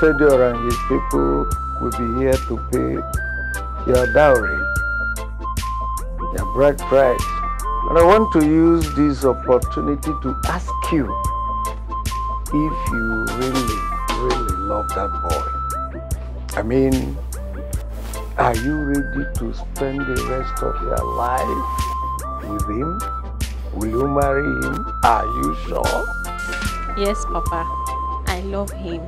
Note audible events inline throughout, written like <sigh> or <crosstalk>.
Fedor and his people will be here to pay your dowry, your bride price. And I want to use this opportunity to ask you if you really, really love that boy. I mean, are you ready to spend the rest of your life with him? Will you marry him? Are you sure? Yes, Papa. I love him.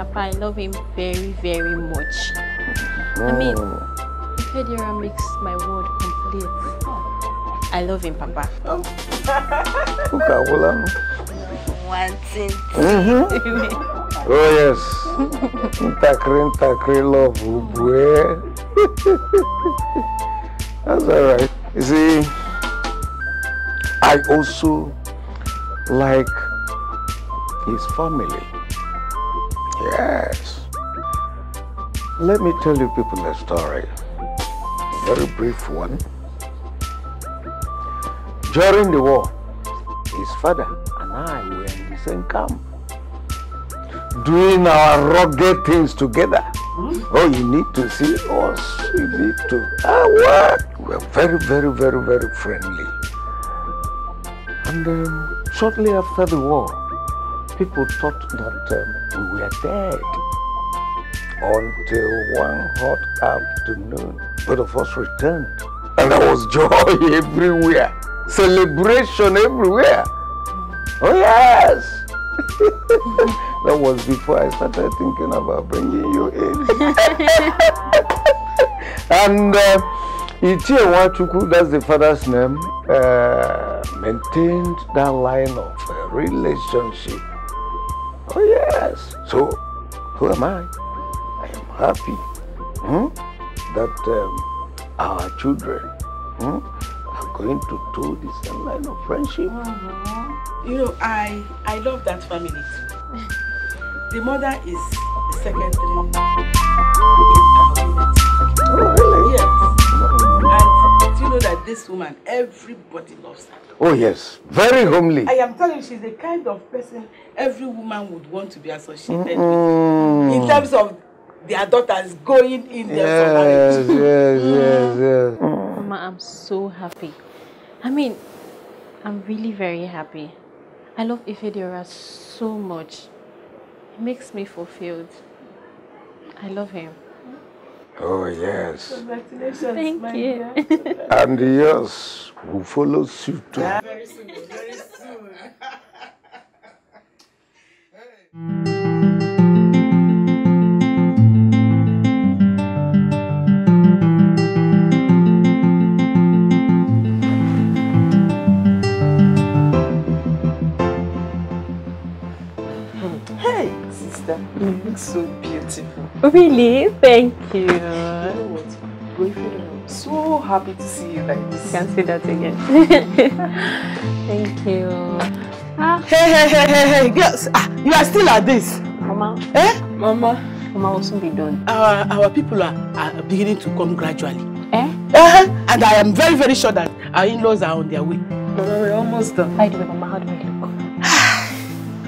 Papa. I love him very, very much. I mean, oh. Federa makes my world complete. I love him, Papa. Oh. One thing. oh, yes. Ntakri, ntakri, love, boy. <laughs> That's all right. You see, I also like his family. Let me tell you people a story. A very brief one. During the war, his father and I were in the same camp. Doing our rugged things together. Hmm? Oh, you need to see us. You need to. Ah, what? We're very, very, very, very friendly. And um, shortly after the war, people thought that um, we were dead until one hot afternoon, both of us returned. And there was joy <laughs> everywhere, celebration everywhere. Mm. Oh, yes! <laughs> that was before I started thinking about bringing you in. <laughs> and uh, Wachuku, that's the father's name, uh, maintained that line of uh, relationship. Oh, yes. So, who am I? happy hmm, that um, our children hmm, are going to do this line of friendship. Mm -hmm. You know, I, I love that family too. the mother is the Oh, really? Yes. Mm-hmm. And do you know that this woman, everybody loves her. Oh, yes. Very homely. I am telling you, she's the kind of person every woman would want to be associated mm with. In mm-hmm. terms of their daughters going in there yes, for marriage. <laughs> Yes, yes, yes. Mama, I'm so happy. I mean, I'm really very happy. I love Ifedora so much. He makes me fulfilled. I love him. Oh, yes. Congratulations. Thank my you. <laughs> And and yours will follow suit too. Very soon, very soon. <laughs> sister. You look so beautiful. Really? Thank you. You know what? Boyfriend, I'm so happy to see you like this. Can't say that again. <laughs> Thank you. Ah. Hey, hey, hey, hey, hey, girls. Ah, you are still like this. Mama. Eh? Mama. Mama will soon be done. Our, our people are, are beginning to come gradually. Eh? Uh-huh. And I am very, very sure that our in-laws are on their way. Mama, we're almost done. By the way, Mama, how do we do?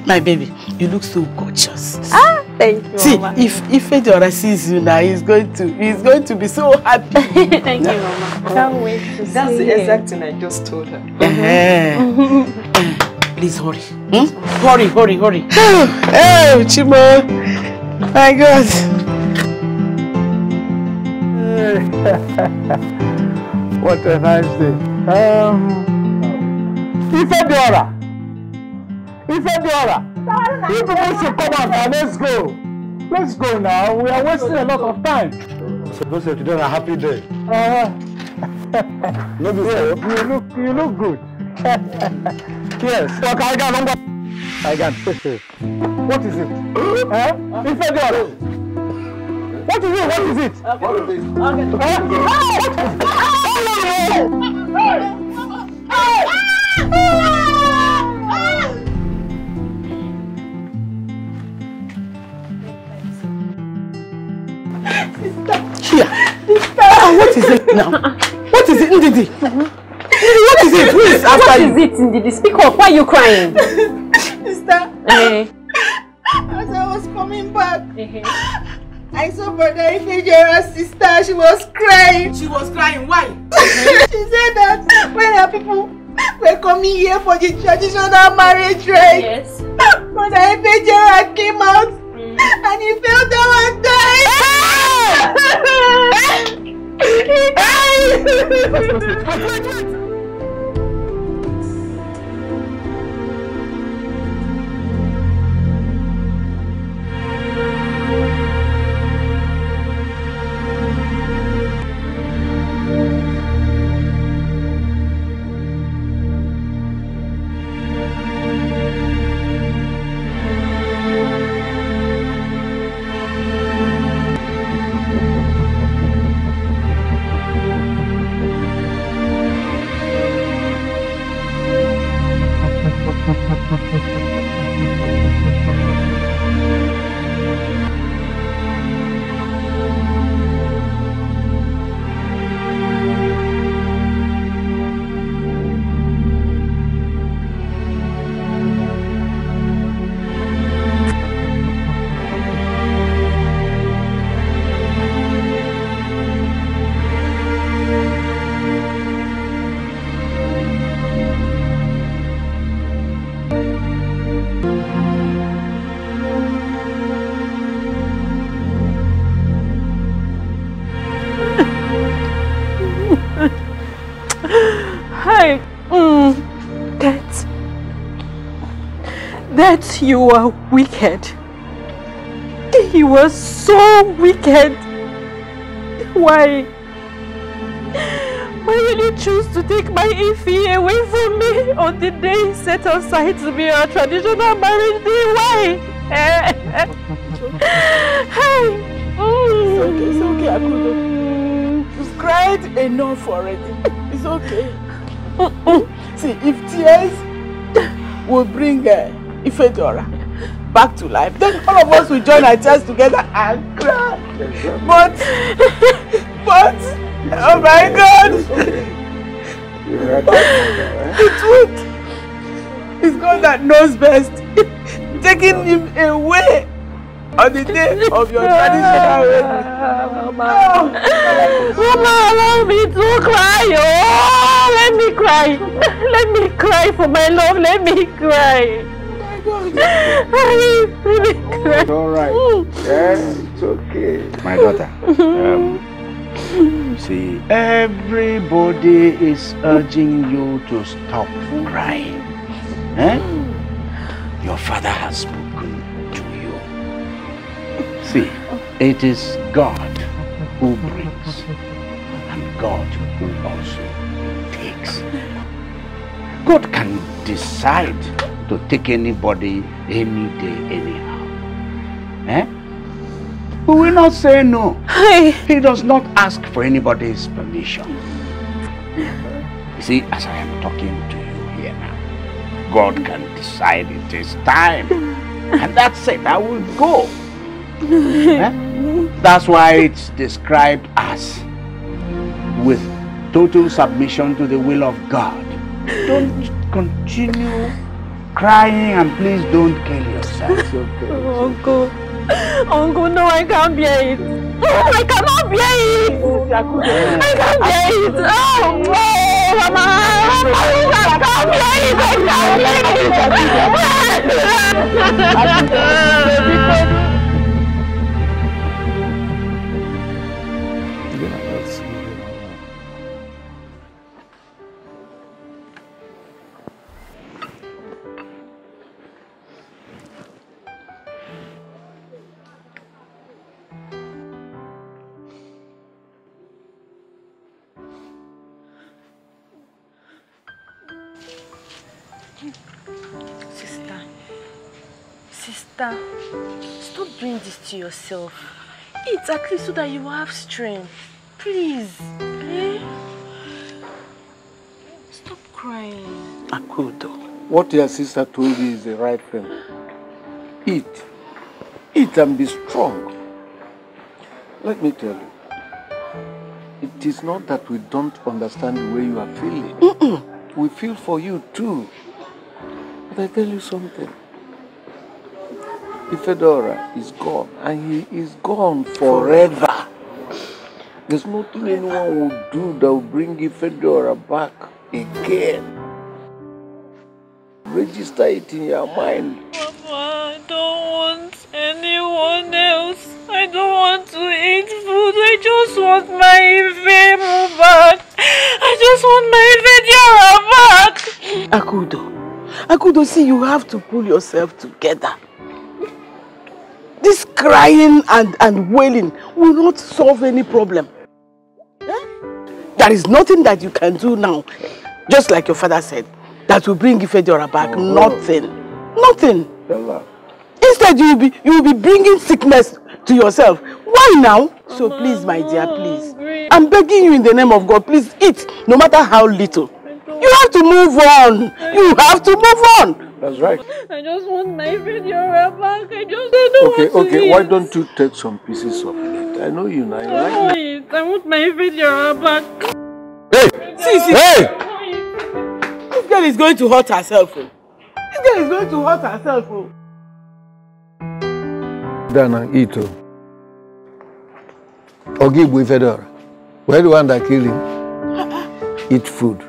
My baby, you look so gorgeous. Ah, thank you. See, Mama. if if Fedora sees you now, he's going to he's going to be so happy. <laughs> thank you, Mama. Can't wait to That's see the exact thing I just told her. Mm -hmm. Please hurry. Hmm? Hurry, hurry, hurry. oh, <sighs> oh, Chimo. My God. <laughs> what a nice day. Um, Ifedora. Ifedora, you people should come out now. Let's go. Let's go now. We are wasting a lot of time. So those of today a happy day. Uh, no, yeah, you look you look good. <laughs> yes. Talk I got number. I got. what is it? huh? Ifedora. What is it? What is it? Okay. What is it? Okay. Huh? Oh! Oh! Oh! Oh! Oh! Oh! Oh! Here. Sister, ah, what is it now? What is it, Ndidi? What is it? Who is after What is it, Ndidi? Speak up. Why are you crying? <laughs> Sister. Hey. Eh. As I was coming back, I saw Brother Ifejura's sister. She was crying. She was crying. Why? <laughs> she said that when her people we're coming here for the traditional marriage, right? Yes. Brother Ifejura came out and you feel down and died. that you are wicked. You are so wicked. Why? Why will you choose to take my Ify away from me on the day set aside to be our traditional marriage day? Why? <laughs> hey. It's okay, it's okay, Akudo. You've cried enough already. It's okay. <laughs> See, if tears will bring uh, Ifedora back to life. Then all of us will join our chest together and cry. But, but, it's oh okay. my God. Okay. the truth is God that knows best. Taking him away on the day of your traditional wedding. Mama, oh, Mama, allow me to cry. Oh, let me cry. Let me cry for my love. Let me cry it's alright. Yeah, it's okay. My daughter. Um, see, everybody is urging you to stop crying. Eh? Your father has spoken to you. See, it is God who brings, and God who also God can decide to take anybody any day, anyhow. Eh? We will not say no. He does not ask for anybody's permission. You see, as I am talking to you here now, God can decide it is time. And that's it, I will go. Eh? That's why it's described as with total submission to the will of God. Don't continue crying and please don't kill yourself. okay. Oh, Uncle. Uncle, no, I can't bear it. Oh, I cannot bear it. I can't bear it. Oh, no, Mama. I can't bear it. I can't bear it. <laughs> stop doing this to yourself. Eat at least so that you have strength. Please. Eh? Stop crying. Akudo, what your sister told you is the right thing. Eat. Eat and be strong. Let me tell you. It is not that we don't understand the way you are feeling. Mm -mm. We feel for you too. But I tell you something. Ifedora is gone, and he is gone forever. There's nothing anyone will do that will bring Ifedora back again. Register it in your mind. Mama, I don't want anyone else. I don't want to eat food. I just want my Ife back. I just want my Ife back. Akudo, Akudo, see, you have to pull yourself together. This crying and, and wailing will not solve any problem. Eh? There is nothing that you can do now, just like your father said, that will bring Ifediora back. Oh. Nothing. Nothing. Bella. Instead, you will be you will be bringing sickness to yourself. Why now? So please, my dear, please. I'm begging you in the name of God, please eat, no matter how little. You have to move on. You have to move on. That's right. I just want my video back. I just I don't okay, want Okay, okay. Why don't you take some pieces of it? I know you now. I want it. I want my video back. Hey! See, see. Hey! This girl is going to hurt herself. Oh. This girl is going to hurt herself. Oh. Dana, Ito. Oh. Ogibwe Fedora. Where the one that killed him? Uh-uh. Eat food.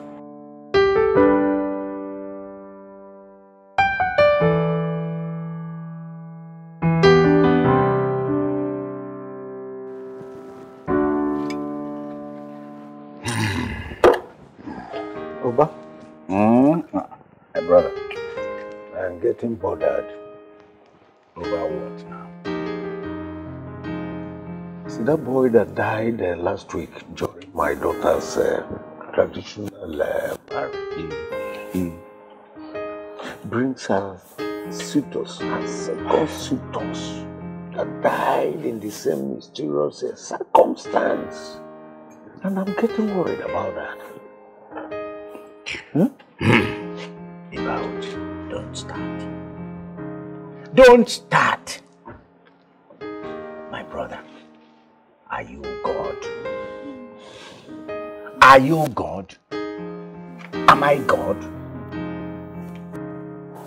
getting bothered over what now? See, that boy that died uh, last week during my daughter's uh, traditional uh, party he brings her suitors, her second suitors that died in the same mysterious uh, circumstance. And I'm getting worried about that. Hmm? <laughs> don't start. Don't start. My brother, are you God? Are you God? Am I God?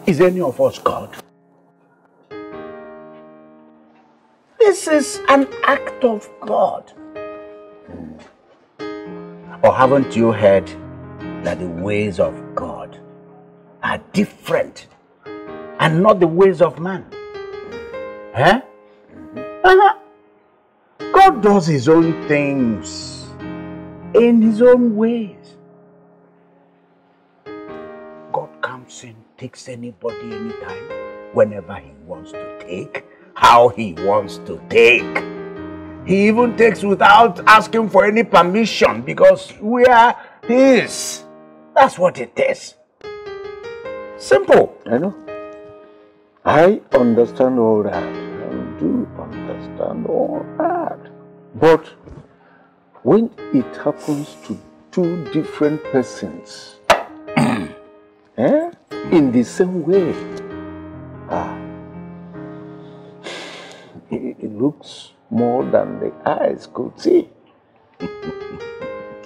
Is any of us God? This is an act of God. Hmm. Or haven't you heard that the ways of are different and not the ways of man. Eh? Uh-huh. God does his own things in his own ways. God comes and takes anybody anytime, whenever he wants to take, how he wants to take. He even takes without asking for any permission because we are his. That's what it is. Simple. I know. I understand all that. I do understand all that. But when it happens to two different persons, <clears throat> eh, in the same way, ah, it, it looks more than the eyes could see. <laughs>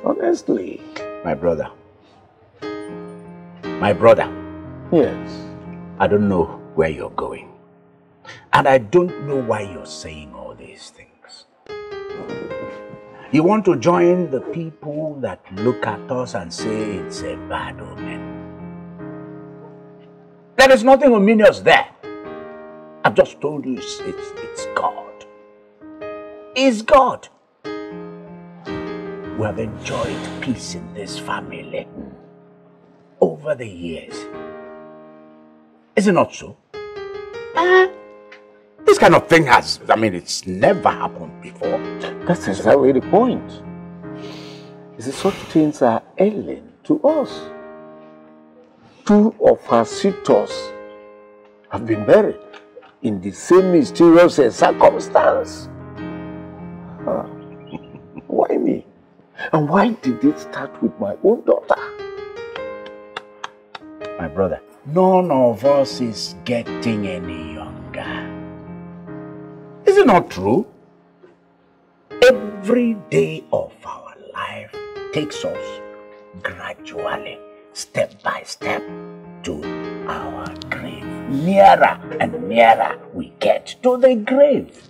Honestly. My brother. My brother. Yes. I don't know where you're going. And I don't know why you're saying all these things. You want to join the people that look at us and say it's a bad omen. There is nothing ominous there. I've just told you it's, it's, it's God. God. We have enjoyed peace in this family over the years. Is it not so? Uh, this kind of thing has, I mean, it's never happened before. That's exactly the point. Is it such things are alien to us? Two of her sisters have been buried in the same mysterious circumstance. Huh. Ah. <laughs> why me? And why did it start with my own daughter? My brother, none of us is getting any younger. Is it not true? Every day of our life takes us gradually, step by step, to our grave. Nearer and nearer we get to the grave.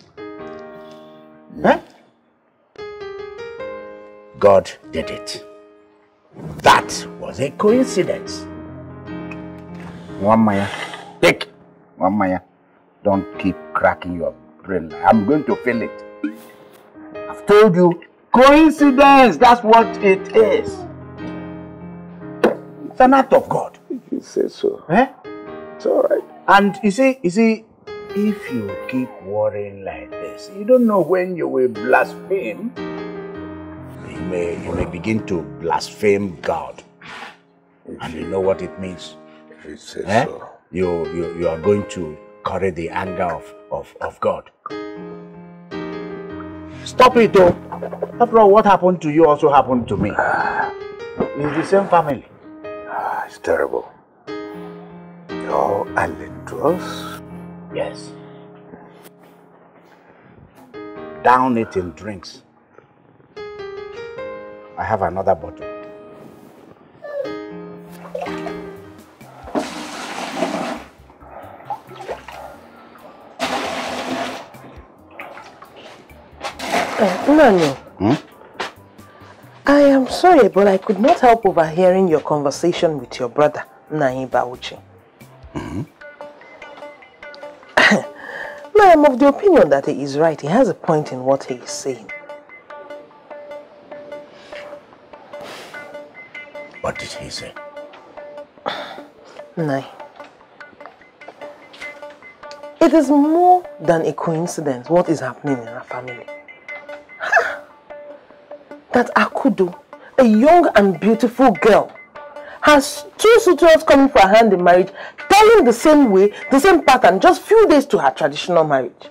Huh? God did it. That was a coincidence. One Maya, Take. One Maya, Don't keep cracking your brain. I'm going to fill it. I've told you, coincidence, that's what it is. It's an act of God. you say so. Eh? It's all right. And you see, you see, if you keep worrying like this, you don't know when you will blaspheme. You may, you may begin to blaspheme God. And you know what it means. You say eh? so. You, you, you are going to carry the anger of, of, of God. Stop it though. After all, what happened to you also happened to me. In <sighs> the same family. Ah, it's terrible. You're Yes. Down it in drinks. I have another bottle. Hmm? I am sorry, but I could not help overhearing your conversation with your brother, Naim Bauchi. Mm -hmm. <laughs> I am of the opinion that he is right. He has a point in what he is saying. What did he say? <sighs> Nai. It is more than a coincidence what is happening in our family that Akudo, a young and beautiful girl, has two suitors coming for her hand in marriage, telling the same way, the same pattern, just few days to her traditional marriage.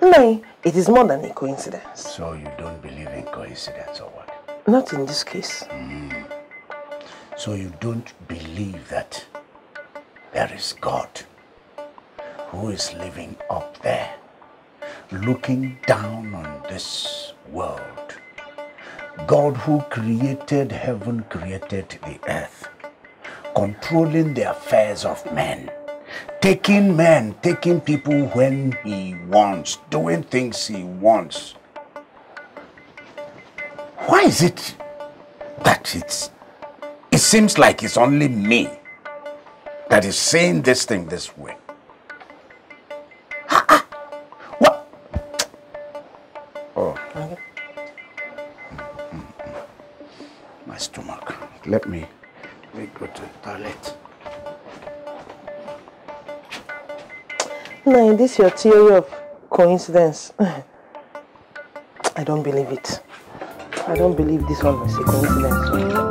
Nay, it is more than a coincidence. So you don't believe in coincidence or what? Not in this case. Mm. So you don't believe that there is God who is living up there, looking down on this world God, who created heaven, created the earth, controlling the affairs of men, taking men, taking people when He wants, doing things He wants. Why is it that it's, it seems like it's only me that is saying this thing this way? Let me, let me go to the toilet. is this your theory of coincidence. <laughs> I don't believe it. I don't believe this one is a coincidence.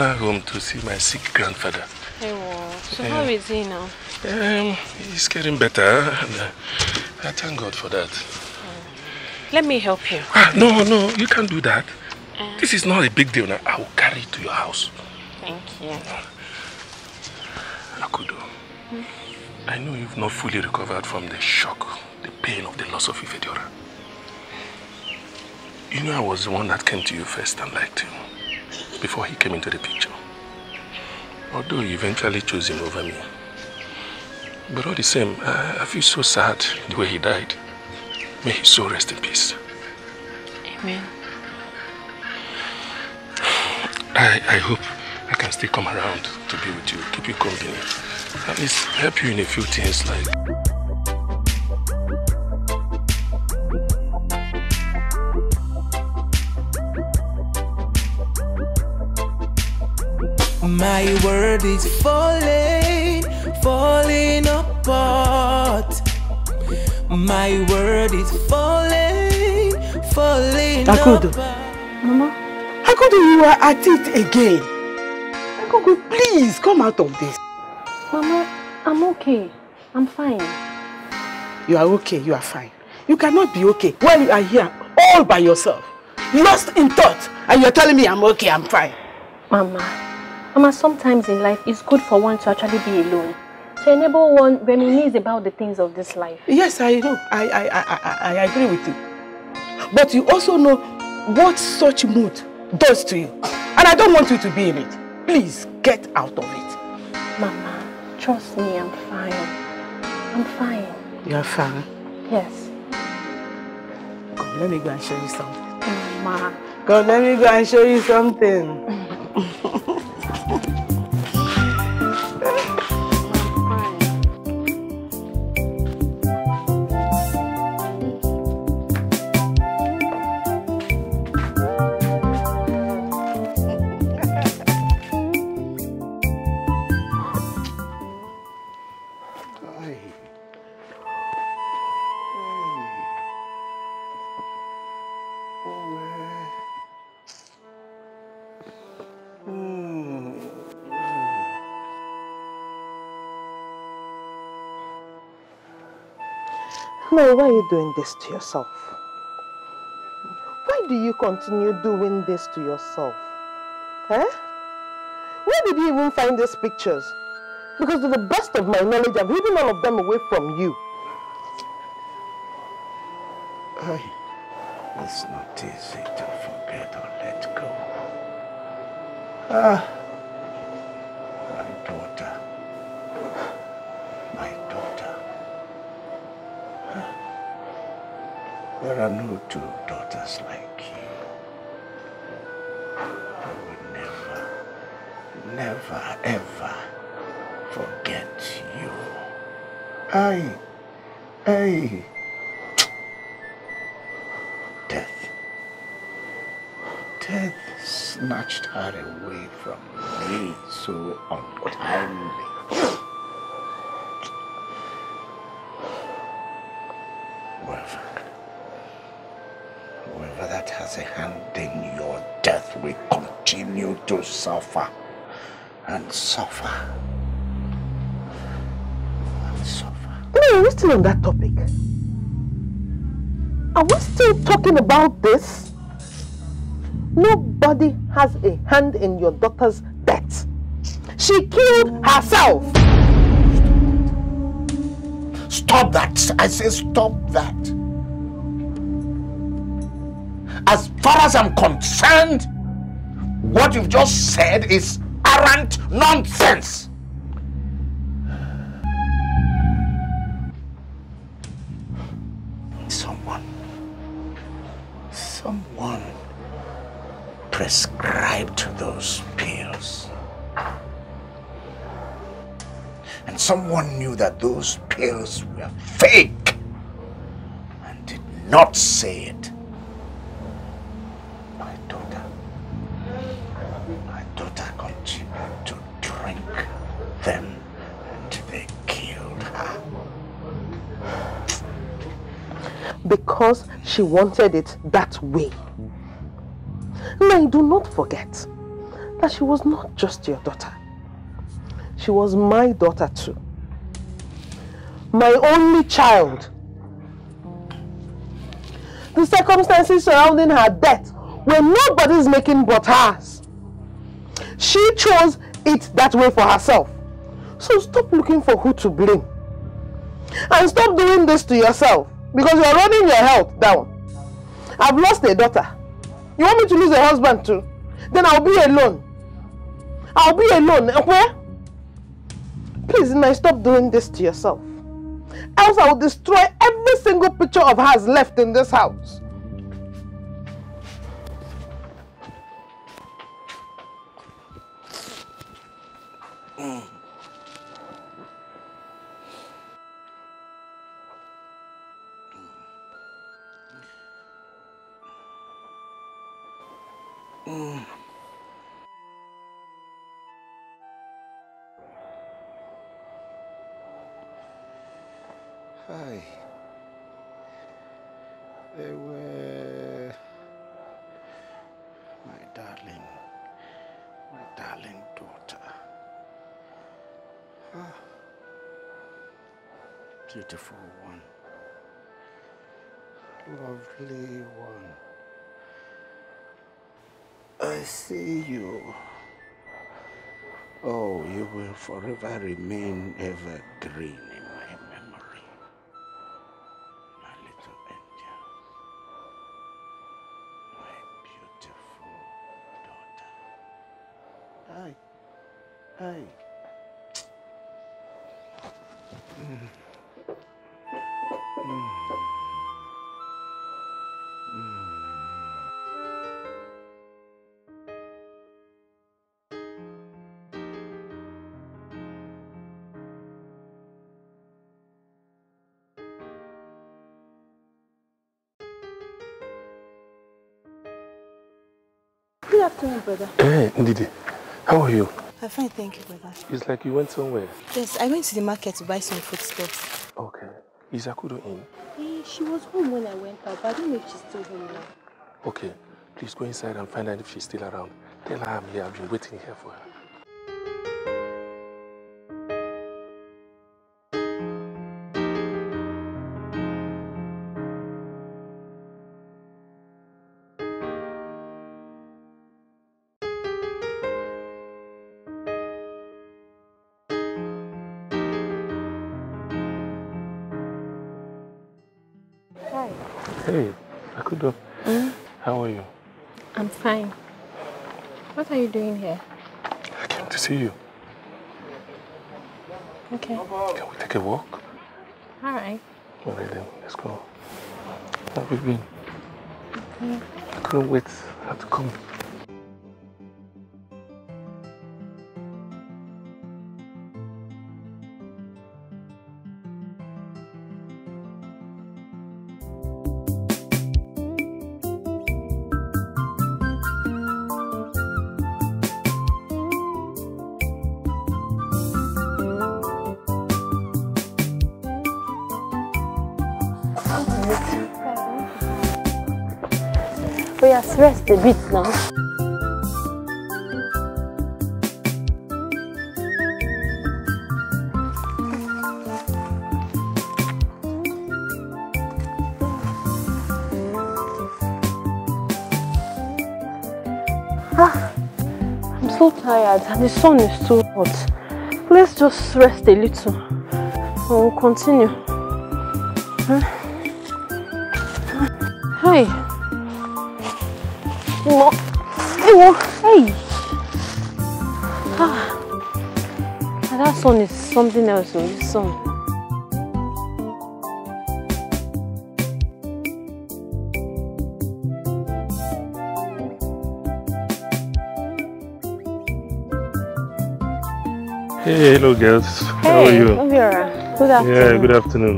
Ghana home to see my sick grandfather. Hey, well, so how is he now? Um, he's getting better. Uh, I thank God for that. Hmm. Let me help you. Ah, no, no, you can't do that. Uh, this is not a big deal now. I will carry it to your house. Thank you. Akudo, hmm? I know you've not fully recovered from the shock, the pain of the loss of Ifedora. You know I was the one that came to you first and liked you before he came into the picture. Although he eventually chose him over me. But all the same, I, I feel so sad the way he died. May his soul rest in peace. Amen. I, I hope I can still come around to be with you, keep you company. At least help you in a few things like... my world is falling, falling apart. My world is falling, falling Akodo. apart. Mama, could you are at it again. Akodo, please come out of this. Mama, I'm okay. I'm fine. You are okay, you are fine. You cannot be okay while you are here all by yourself, lost in thought, and you're telling me I'm okay, I'm fine. Mama, Mama, sometimes in life, it's good for one to actually be alone. To enable one reminisce about the things of this life. Yes, I know. I, I, I, I, I agree with you. But you also know what such mood does to you. And I don't want you to be in it. Please, get out of it. Mama, trust me, I'm fine. I'm fine. You're fine? Yes. Come, let me go and show you something. Mama. Come, let me go and show you something. <laughs> know why you doing this to yourself. Why do you continue doing this to yourself? Eh? Where did you even find these pictures? Because to the best of my knowledge, I've hidden all of them away from you. I, it's not easy to forget or let go. Ah. There are no two daughters like you. I will never, never, ever forget you. I, I. Death. Death snatched her away from me so untimely. suffer and suffer and suffer. No, are we still on that topic? Are we still talking about this? Nobody has a hand in your daughter's death. She killed herself. Stop that. I say stop that. As far as I'm concerned, what you've just said is arrant nonsense. Someone, someone prescribed those pills. And someone knew that those pills were fake and did not say it. because she wanted it that way. Now, do not forget that she was not just your daughter. She was my daughter too. My only child. The circumstances surrounding her death were nobody's making but hers. She chose it that way for herself. So stop looking for who to blame. And stop doing this to yourself because you are running your health down. I've lost a daughter. You want me to lose a husband too? Then I'll be alone. I'll be alone. Where? Please, now stop doing this to yourself. Else I will destroy every single picture of hers left in this house. beautiful one, lovely one. I see you. Oh, you will forever remain evergreen. brother. Hey, Ndidi. How are you? I'm fine, thank you, brother. It's like you went somewhere. Yes, I went to the market to buy some foodstuffs. Okay. Is Akudo in? Hey, eh, she was home when I went out, but I don't know if she's still home now. Okay. Please go inside and find out if she's still around. Tell her I'm here. I've been waiting here for her. we've been. I couldn't wait. for her to come. rest a little and we'll continue. Hey. No. Hey. Ah. That sun is something else, this sun. Hey, hello girls. Hey, How are you? Good afternoon. Yeah, good afternoon.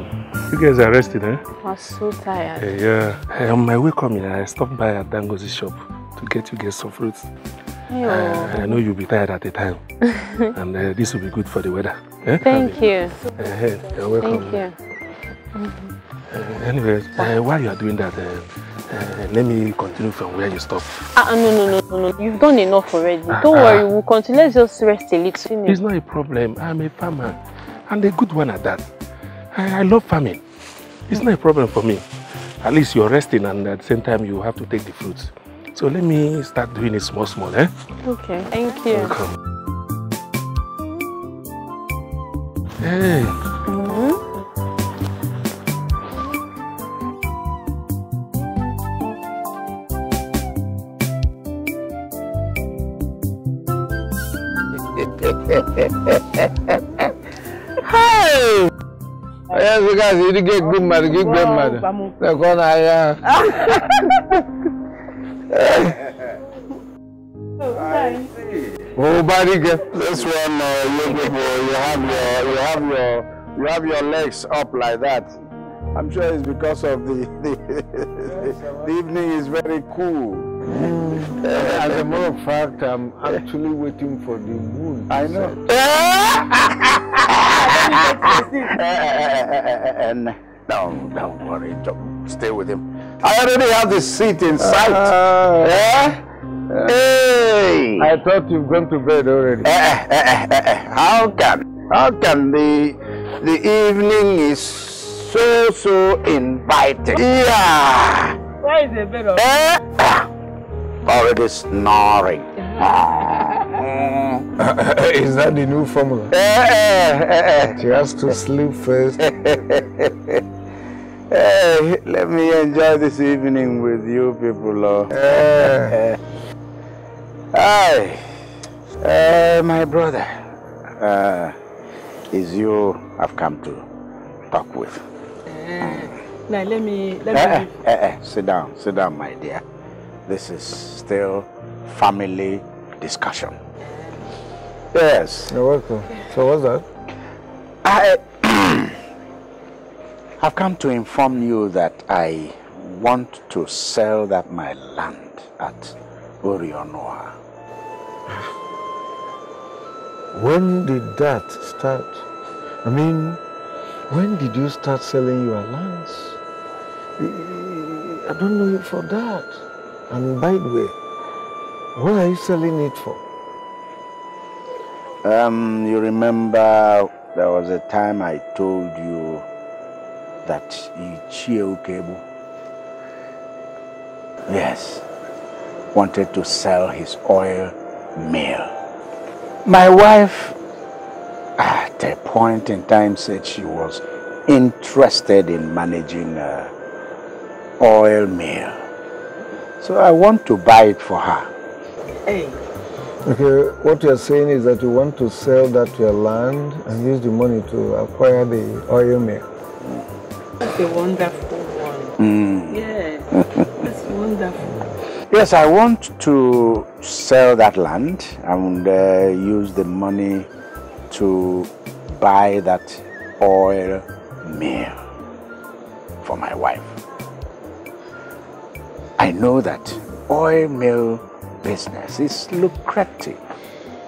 You guys are rested, eh? I'm so tired. Hey, yeah. Hey, on my way coming, I stopped by at Dango's shop to get you guys some fruits. Hey, oh. I know you'll be tired at the time. <laughs> and uh, this will be good for the weather. Eh? Thank you. hey, you're welcome. Thank you. Mm -hmm. uh, anyways, eh, while you are doing that, eh? Uh, let me continue from where you stopped. Ah, uh, no, no, no, no, no. You've done enough already. Uh, Don't ah. worry, we'll continue. Let's just rest a little. It's not a problem. I'm a farmer, and a good one at that. I, I love farming. It's not a problem for me. At least you're resting, and at the same time, you have to take the fruits. So let me start doing it small, small, eh? Okay, thank you. Welcome. Hey. you gasị ịdịga good mmadụ gị igwe mmadụ lekọ n'ahịa ahụ Obarige. This one, uh, you, you have your, you have your, you have your legs up like that. I'm sure it's because of the <laughs> the, the, evening is very cool. As a matter of fact, I'm <laughs> actually waiting for the moon. I know. <laughs> And don't worry. Don't stay with him. I already have the seat in sight. Uh, yeah? Uh, hey! I thought you've gone to bed already. Eh, eh, eh, how can? How can the the evening is so so inviting? Yeah. Why is the bed? Ah. Already snoring. Ah. <laughs> Is that the new formula? she eh, eh, eh, has to sleep first. hey, <laughs> let me enjoy this evening with you people. Oh. Hi, uh, my brother. Uh, is you I've come to talk with. now let me let me. sit down, sit down, my dear. This is still family discussion. Yes. You're welcome. So what's that? I have <clears throat> come to inform you that I want to sell that my land at Orionoa. When did that start? I mean, when did you start selling your lands? I don't know you for that. And by the way, what are you selling it for? Um, you remember there was a time I told you that Ichio Kebu, yes, wanted to sell his oil mill. My wife, at a point in time, said she was interested in managing uh, oil mill. So I want to buy it for her. Hey. Okay, what you're saying is that you want to sell that your land and use the money to acquire the oil mill. That's a wonderful one. Mm. Yes, <laughs> that's wonderful. Yes, I want to sell that land and uh, use the money to buy that oil mill for my wife. I know that oil mill business. It's lucrative.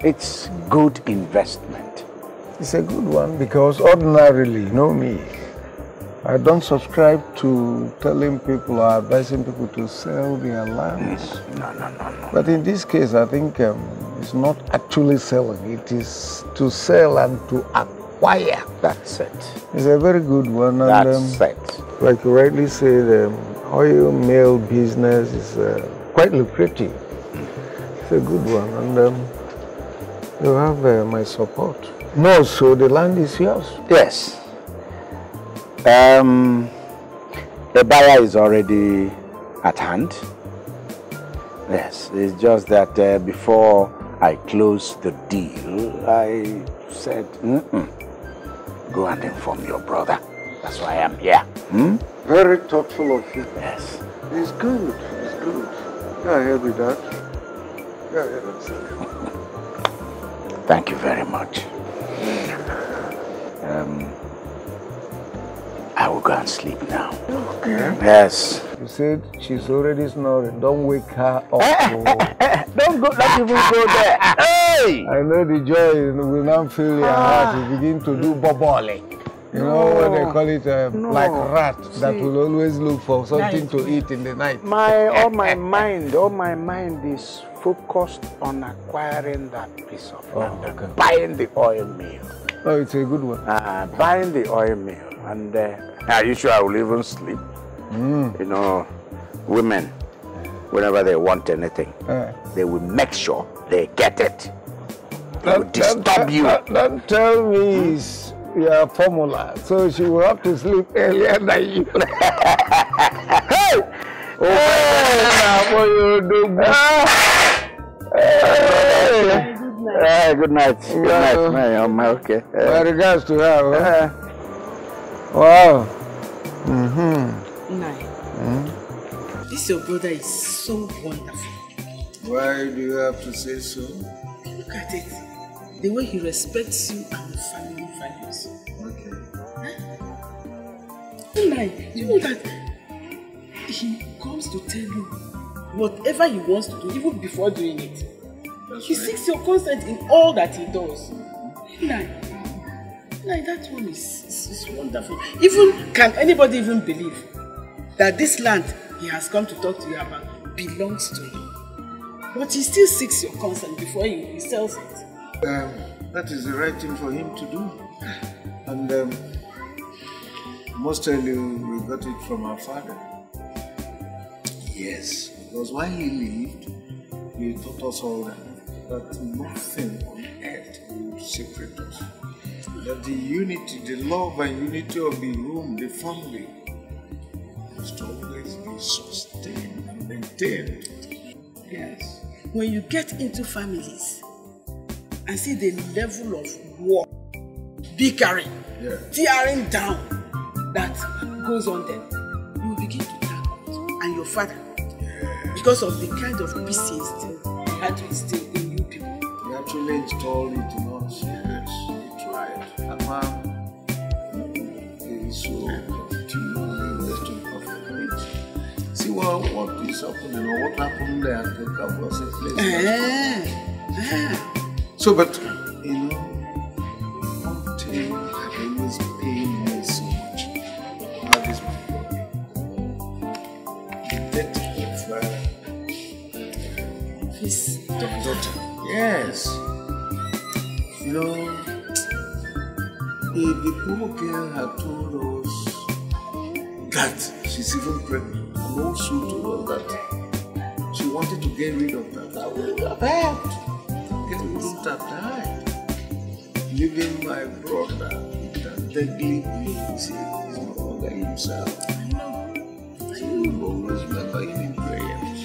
It's good investment. It's a good one because ordinarily, you know me, I don't subscribe to telling people or advising people to sell their lands. No, no, no, no. But in this case, I think um, it's not actually selling. It is to sell and to acquire. That's it. It's a very good one. And, That's um, it. Like you rightly said, the um, oil mill business is uh, quite lucrative a good one. And um, you have uh, my support. No, so the land is yours. Yes. Um, the buyer is already at hand. Yes, it's just that uh, before I close the deal, I said, mm -mm. go and inform your brother. That's why I am here. Hmm? Very thoughtful of you. Yes. It's good. It's good. Yeah, I hear with that. Thank you very much. Um, I will go and sleep now. Okay. Yes. You said she's already snoring. Don't wake her up. <laughs> Don't go. Don't even go there. <laughs> Hey! I know the joy will now fill your heart. Ah. You begin to do boboling. You no, know what they call it? A um, no. black rat See, that will always look for something to eat in the night. My all my <laughs> mind, all my mind is focused on acquiring that piece of oh, land. Buying the oil mill. Oh, it's a good one. Uh, buying the oil mill, and uh, are you sure I will even sleep? Mm. You know, women, whenever they want anything, uh. they will make sure they get it. don't, disturb don't, you. Don't, don't tell me. Mm. your formula, so she will have to sleep earlier than you. hey! Oh, hey! what you do? Ah. Hey! Hey, good night. Good night, yeah. man. I'm okay. Uh, My regards to her. Huh? Uh, wow. Mm-hmm. Nice. hmm This your brother is so wonderful. Why do you have to say so? Look at it. The way he respects you and your family. five years. Okay. You know that he comes to tell you whatever he wants to do, even before doing it. That's he right. seeks your consent in all that he does. Lie. Lie, that one is, is, is wonderful. Even, can anybody even believe that this land he has come to talk to you about belongs to him? But he still seeks your consent before he, he sells it. Um, that is the right thing for him to do. And um, mostly we got it from our father. Yes, because while he lived, he taught us all that, that nothing on earth would separate us. That the unity, the love and unity of the room, the family, must always be sustained and maintained. Yes. When you get into families and see the level of war bickering, yeah. tearing down that goes on then, you begin to thank God and your father yeah. because of the kind of peace he instilled, he had to instill in you people. He actually installed it in us. Yes, he tried. And man, he is so continually wasting perfect See what, what is happening or what happened there at the Kabul place. Uh, uh. So, but so much. That is my his daughter. Yes. You know, the girl had told us that she's even pregnant, and also to us that she wanted to get rid of that, that would Get rid of that. Living my brother that deadly means is no longer himself. I So you will always remember him in prayers.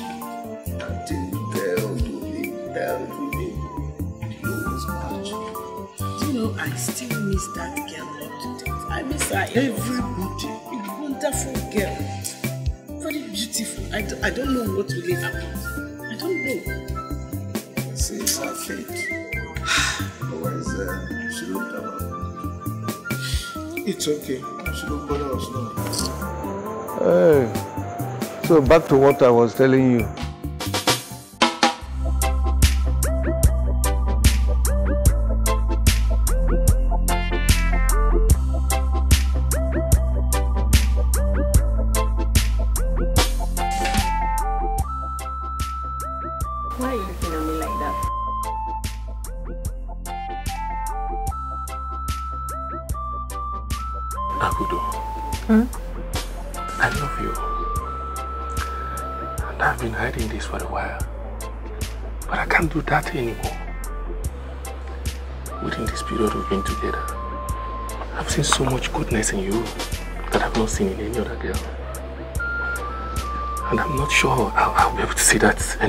Until you tell to him, tell to him, he much. Do You know, I still miss that girl today. I miss her everybody. A wonderful girl. Very beautiful. I d- I don't know what really happened. I don't know. Since our fate Always. <sighs> Uh, lórí tábà. It's okay. She don't bother us now. Hey. So back to what I was telling you.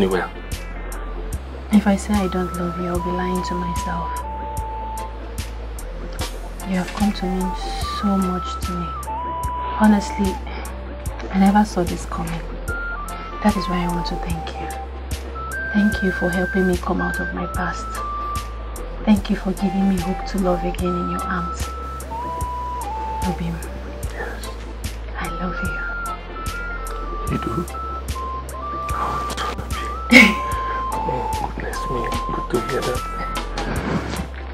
anywhere. If I say I don't love you, I'll be lying to myself. You have come to mean so much to me. Honestly, I never saw this coming. That is why I want to thank you. Thank you for helping me come out of my past. Thank you for giving me hope to love again in your arms. Obim, I love you. You do? together.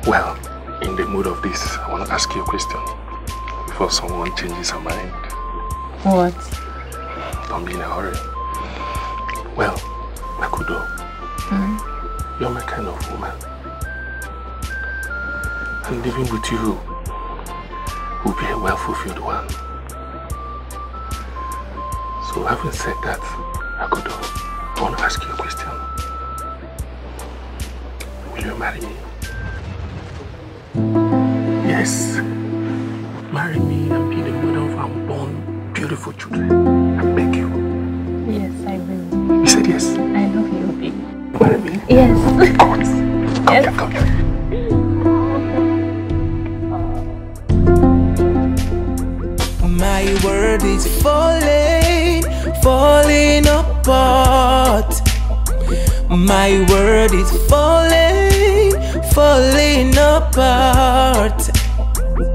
Well, in the mood of this, I want to ask you a question before someone changes her mind. What? Don't be in a hurry. Well, Makudo, mm -hmm. you're my kind of woman. And living with you will be a well-fulfilled one. So having said that, Makudo, I want to ask you a question you marry me? Yes. Marry me and be the mother of unborn, beautiful children. I beg you. Yes, I will. You said yes? I love you, baby. Marry me? Yes. Of course. Come yes. here, come here. My world is falling, falling apart. My world is falling falling apart.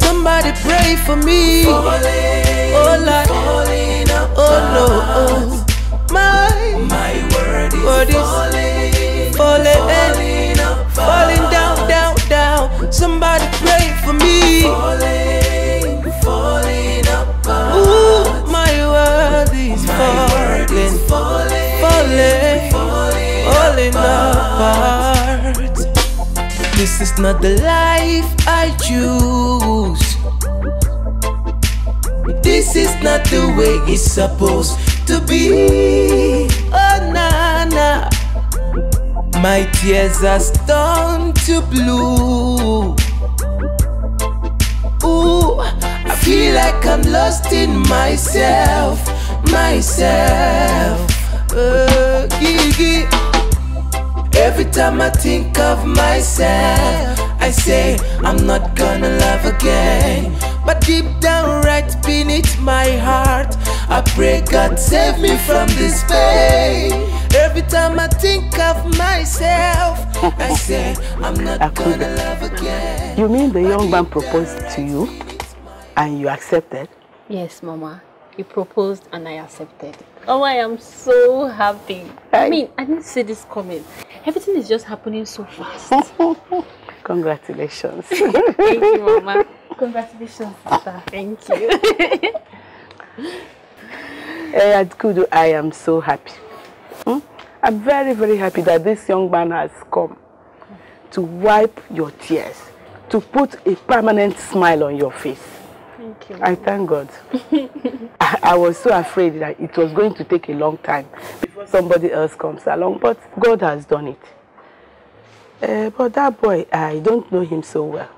Somebody pray for me. Falling, oh Lord, falling oh, apart. oh Lord, oh. my my word is, word is falling, falling, falling, falling down, down, down. Somebody pray for me. Falling, This is not the life I choose. This is not the way it's supposed to be. Oh, na na. My tears are turned to blue. Ooh, I feel like I'm lost in myself, myself. Uh, gigi. Every time I think of myself, I say I'm not gonna love again. But deep down, right beneath my heart, I pray God save me from this pain. Every time I think of myself, I say I'm not gonna love again. You mean the young man proposed to you and you accepted? Yes, Mama. He proposed and I accepted. Oh, I am so happy. I, I mean, I didn't see this coming. Everything is just happening so fast. <laughs> Congratulations. <laughs> Thank you, Mama. Congratulations, sister. Thank you. hey, <laughs> eh, Adkudu, I am so happy. Hmm? I'm very, very happy that this young man has come to wipe your tears, to put a permanent smile on your face. I thank God. I, <laughs> I was so afraid that it was going to take a long time before somebody else comes along, but God has done it. Uh, but that boy, I don't know him so well.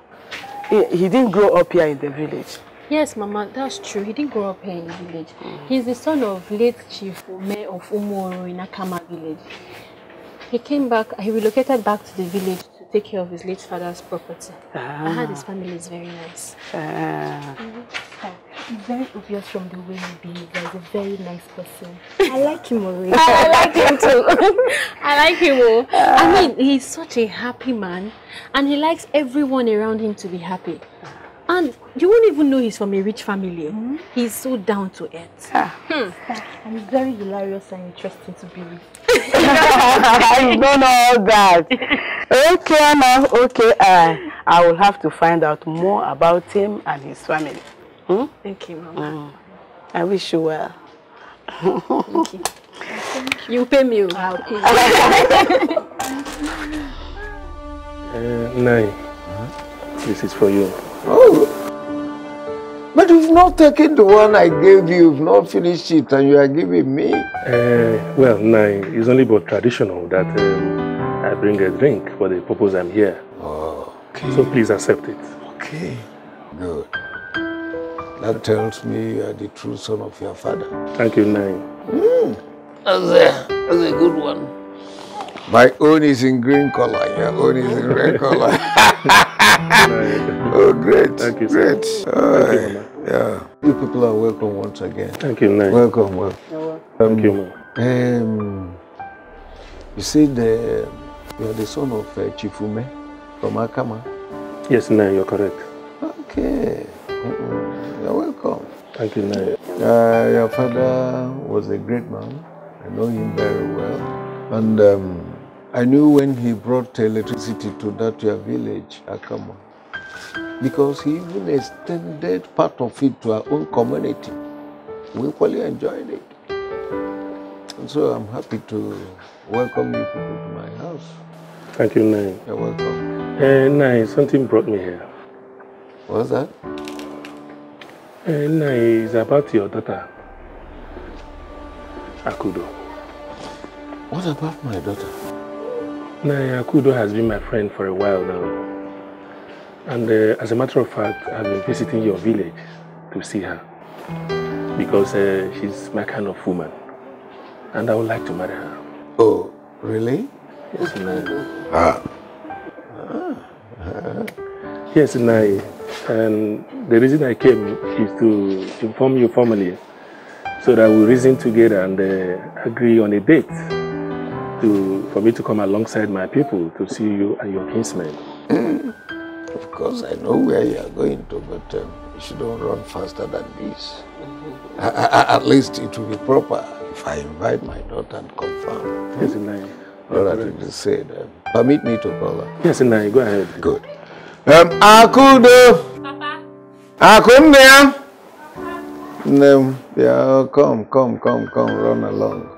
He, he didn't grow up here in the village. Yes, Mama, that's true. He didn't grow up here in the village. Mm. He's the son of late Chief mayor of Umuoro in Akama village. He came back, he relocated back to the village take care of his late father's property. Ah. I heard his ah. family is very nice. Ah. Mm mm-hmm. -hmm. it's very obvious from the way he behaves. He's a very nice person. <laughs> I like him already. <laughs> I like him too. <laughs> I like him more. Oh. Ah. I mean, he's such a happy man and he likes everyone around him to be happy. And you won't even know he's from a rich family. Mm. He's so down to earth. Ah. Hmm. And he's very hilarious and interesting to be with. I don't know that. Okay, now, okay. Uh, I will have to find out more about him and his family. Hmm? Thank you, Mama. Mm. I wish you well. Thank you. <laughs> you. pay me. Oh. I'll pay you. <laughs> uh, nine. Huh? This is for you. Oh. But you've not taken the one I gave you, you've not finished it, and you are giving me. Uh, well, no, it's only but traditional that um, I bring a drink for the purpose I'm here. Oh, okay. So please accept it. Okay, good. That tells me you are the true son of your father. Thank you, Nai. Mm. That's, a, that's a good one. My own is in green color, your own is in red color. <laughs> <laughs> oh, great. Thank you, sir. Great. Thank you, yeah. You people are welcome once again. Thank you, man. Welcome, welcome. Thank you, um, man. Um, you see, the, you are the son of uh, Chifume from Akama. Yes, no, you're correct. Okay. You're welcome. Thank you, Nay. Uh, your father was a great man. I know him very well. And um, I knew when he brought electricity to that your village, Akama, because he even extended part of it to our own community. We fully enjoyed it. And so I'm happy to welcome you people to my house. Thank you, Nai. You're welcome. Uh, Nai, something brought me here. What's that? Uh, Nai, it's about your daughter, Akudo. What about my daughter? Naya Kudo has been my friend for a while now. And uh, as a matter of fact, I've been visiting your village to see her. Because uh, she's my kind of woman. And I would like to marry her. Oh, really? Yes, Naya. Ah. ah. Yes, Naya. And the reason I came is to inform you formally so that we reason together and uh, agree on a date to for me to come alongside my people to see you and your kinsmen. Hmm. Of course, I know where you are going to, but um, you shouldn't run faster than this. I, I, at least it will be proper if I invite my daughter and confirm. Yes, Inai. All I right. said. Um, permit me to call her. Yes, Inai, go ahead. Good. Um, Akudo. Papa. Akunde. Papa. No, yeah, come, come, come, come, run along.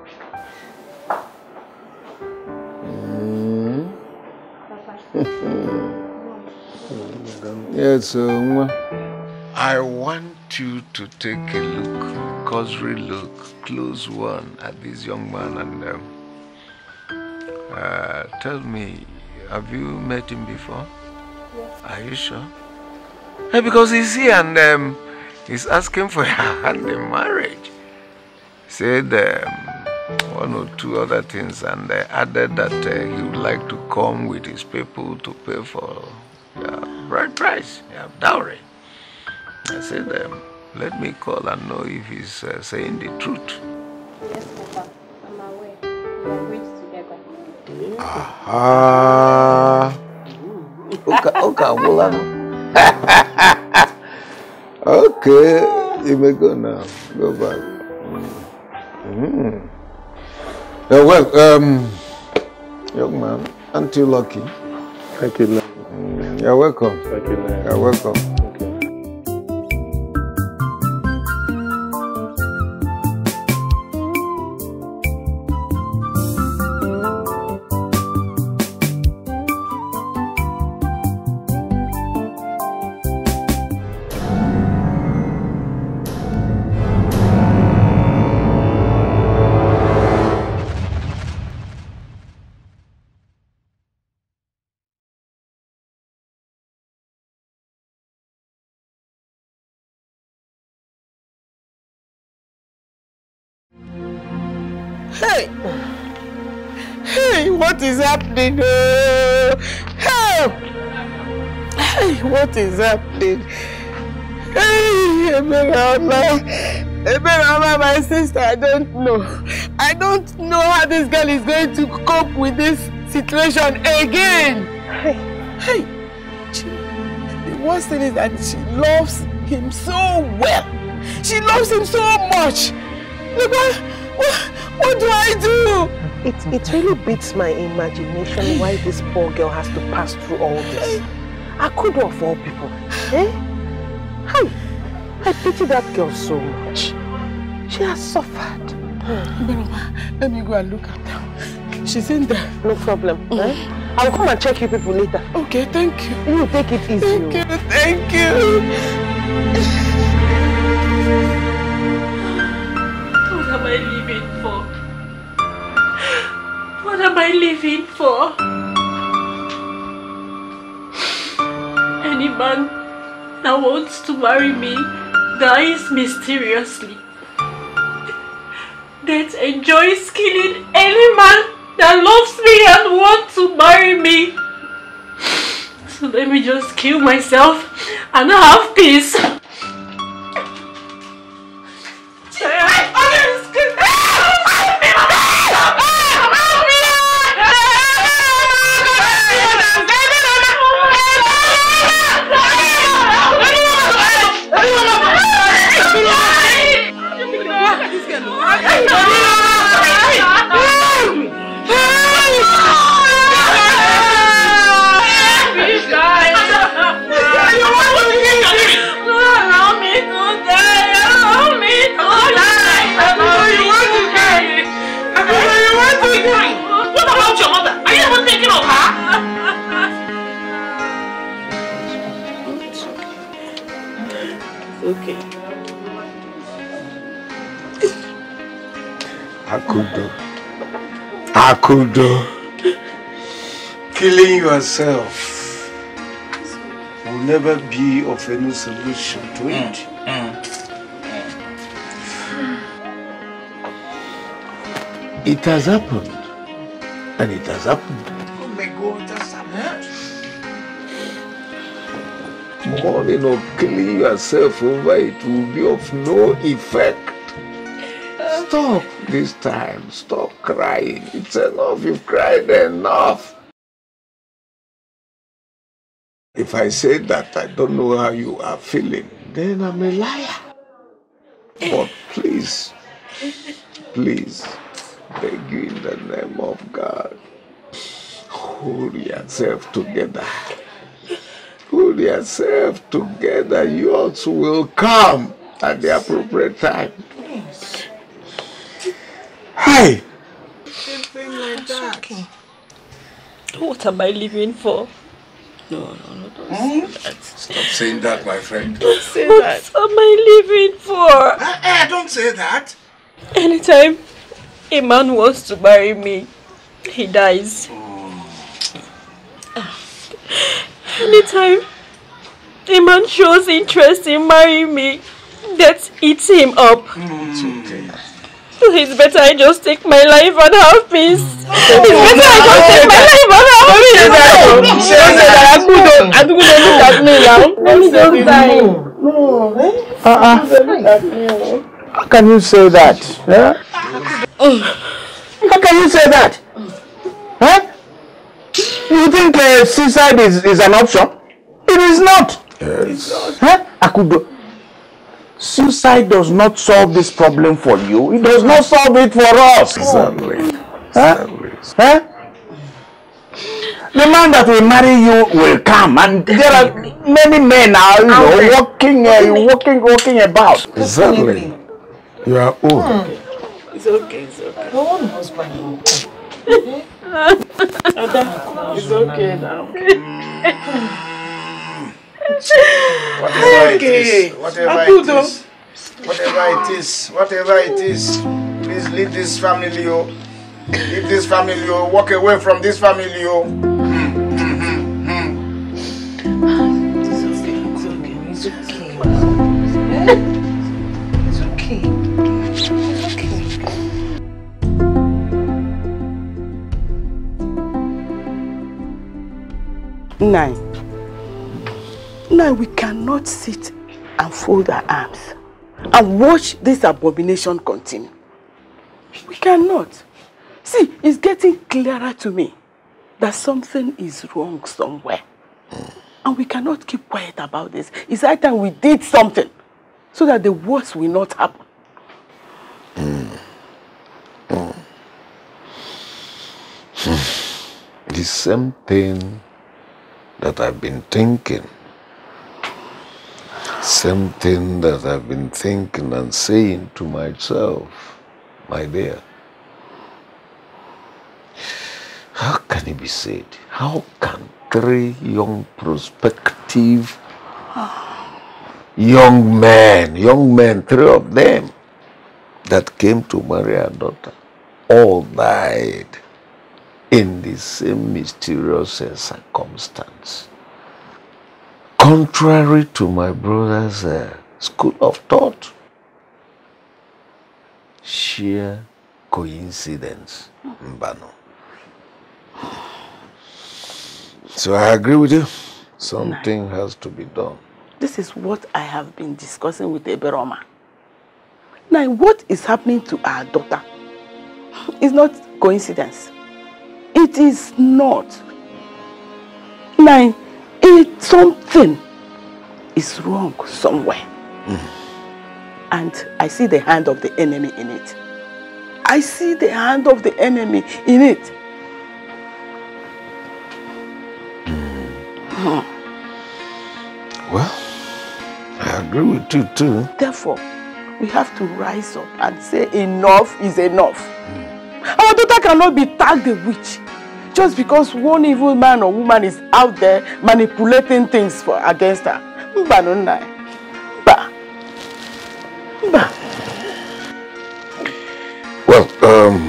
<laughs> yes, uh, I want you to take a look, cursory look, close one at this young man and um, uh, tell me, have you met him before? Yes. Are you sure? Hey, eh, because he's here and um, he's asking for your <laughs> hand in marriage. Said. Um, one or two other things, and uh, added that uh, he would like to come with his people to pay for uh, bride price, yeah, dowry. I said, um, let me call and know if he's uh, saying the truth. Yes, Papa, I'm We are Okay, mm. okay, <laughs> okay, you may go now. Go back. Mm. Mm. Uh, well, um, young man, aren't you lucky? Thank you, Mm, you're welcome. Thank you, Lord. You're welcome. happening? Oh, help! Hey, what is happening? Hey, Emerala, Emerala, my sister, I don't know. I don't know how this girl is going to cope with this situation again. Hey, hey, she, the worst thing is that she loves him so well. She loves him so much. Look, what, what, what do I do? It, it really beats my imagination why this poor girl has to pass through all this. I could of all people. Eh? how? I pity that girl so much. She has suffered. let me go and look at her. She's in there. No problem. Eh? Mm. I'll come and check you people later. Okay, thank you. You take it easy. Thank oh. you, thank you. What have what am I living for? Any man that wants to marry me dies mysteriously. Death enjoys killing any man that loves me and wants to marry me. So let me just kill myself and have peace. condone killing yourself will never be of any solution to it. Mm. Mm. mm. It has happened. And it has happened. Oh my God, happened. Morning of killing yourself over it will be of no effect. Stop this time. Stop crying. It's enough. You've cried enough. If I say that I don't know how you are feeling, then I'm a liar. But please, please, beg you in the name of God, hold yourself together. Hold yourself together. Yours will come at the appropriate time. Hi. What am I living for? No, no, no, don't mm? say hmm? that. Stop saying that, my friend. Don't say what that. What am I living for? Uh, uh, don't say that. Anytime a man wants to marry me, he dies. Hmm. Anytime a man shows interest in marrying me, that eats him up. Mm. It's okay. It's better I just take my life and have peace. it's better I just take my life and have peace. Don't say that. I don't. I don't look at me now. Let me just die. No. Uh uh. How can you say that? Huh? How can you say that? Huh? You think uh, suicide is, is an option? It is not. Yes. Huh? Akudo. Suicide does not solve this problem for you. It does not solve it for us. Exactly. Huh? Huh? The man that will marry you will come, and there are many men now, you know, walking, uh, walking, walking about. Exactly. You are old. Hmm. It's okay. It's okay. husband. <laughs> it's okay now. <laughs> Hmm whatever it is, whatever it is, whatever it is, whatever it is, please leave this family, oh. Leave this family, oh. Walk away from this family, oh. It's okay. It's okay. It's okay. Nine. Now we cannot sit and fold our arms and watch this abomination continue. We cannot. See, it's getting clearer to me that something is wrong somewhere. And we cannot keep quiet about this. It's high time we did something so that the worst will not happen. <sighs> The same thing that I've been thinking same thing that I've been thinking and saying to myself, my dear. How can it be said? How can three young prospective young men, young men, three of them that came to marry our daughter, all died in the same mysterious circumstance contrary to my brother's uh, school of thought. Sheer coincidence, hmm. Mbano. So I agree with you. Something has to be done. This is what I have been discussing with Eberoma. Now, what is happening to our daughter It's not coincidence. It is not. Now, it, something is wrong somewhere. Mm And I see the hand of the enemy in it. I see the hand of the enemy in it. Mm. Hmm. Well, I agree with you too. Therefore, we have to rise up and say enough is enough. Mm. Our daughter cannot be tagged a witch. Just because one evil man or woman is out there manipulating things for against her. Mba no nai. Mba. Mba. Well, um,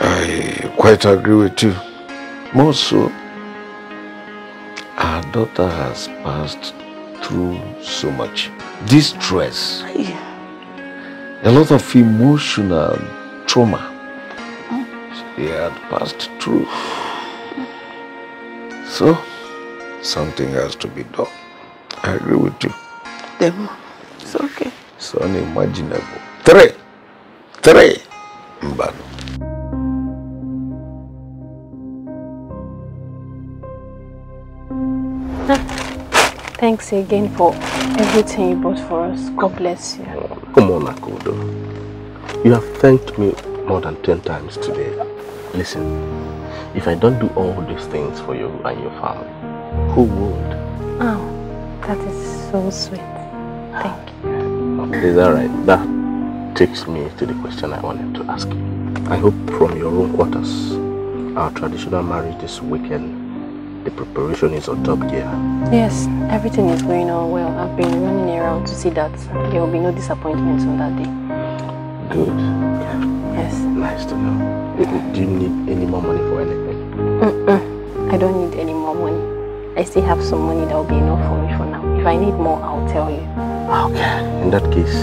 I quite agree with you. More so, our daughter has passed through so much distress, yeah. a lot of emotional trauma he had passed through. So, something has to be done. I agree with you. Demo, it's okay. It's unimaginable. Three. Three. Mbano. Ah, thanks again for everything you bought for us. God bless you. Come on, Akodo. You have thanked me more than 10 times today. Listen, if I don't do all these things for you and your family, who would? Oh, that is so sweet. Thank you. Okay, is that right? That takes me to the question I wanted to ask you. I hope from your own quarters, our traditional marriage this weekend, the preparation is on top gear. Yes, everything is going on well. I've been running around to see that there will be no disappointments on that day. Good. Yes. Nice to know. Do you need any more money for anything? Mm I don't need any more money. I still have some money that will be enough for me for now. If I need more, I'll tell you. Okay. In that case,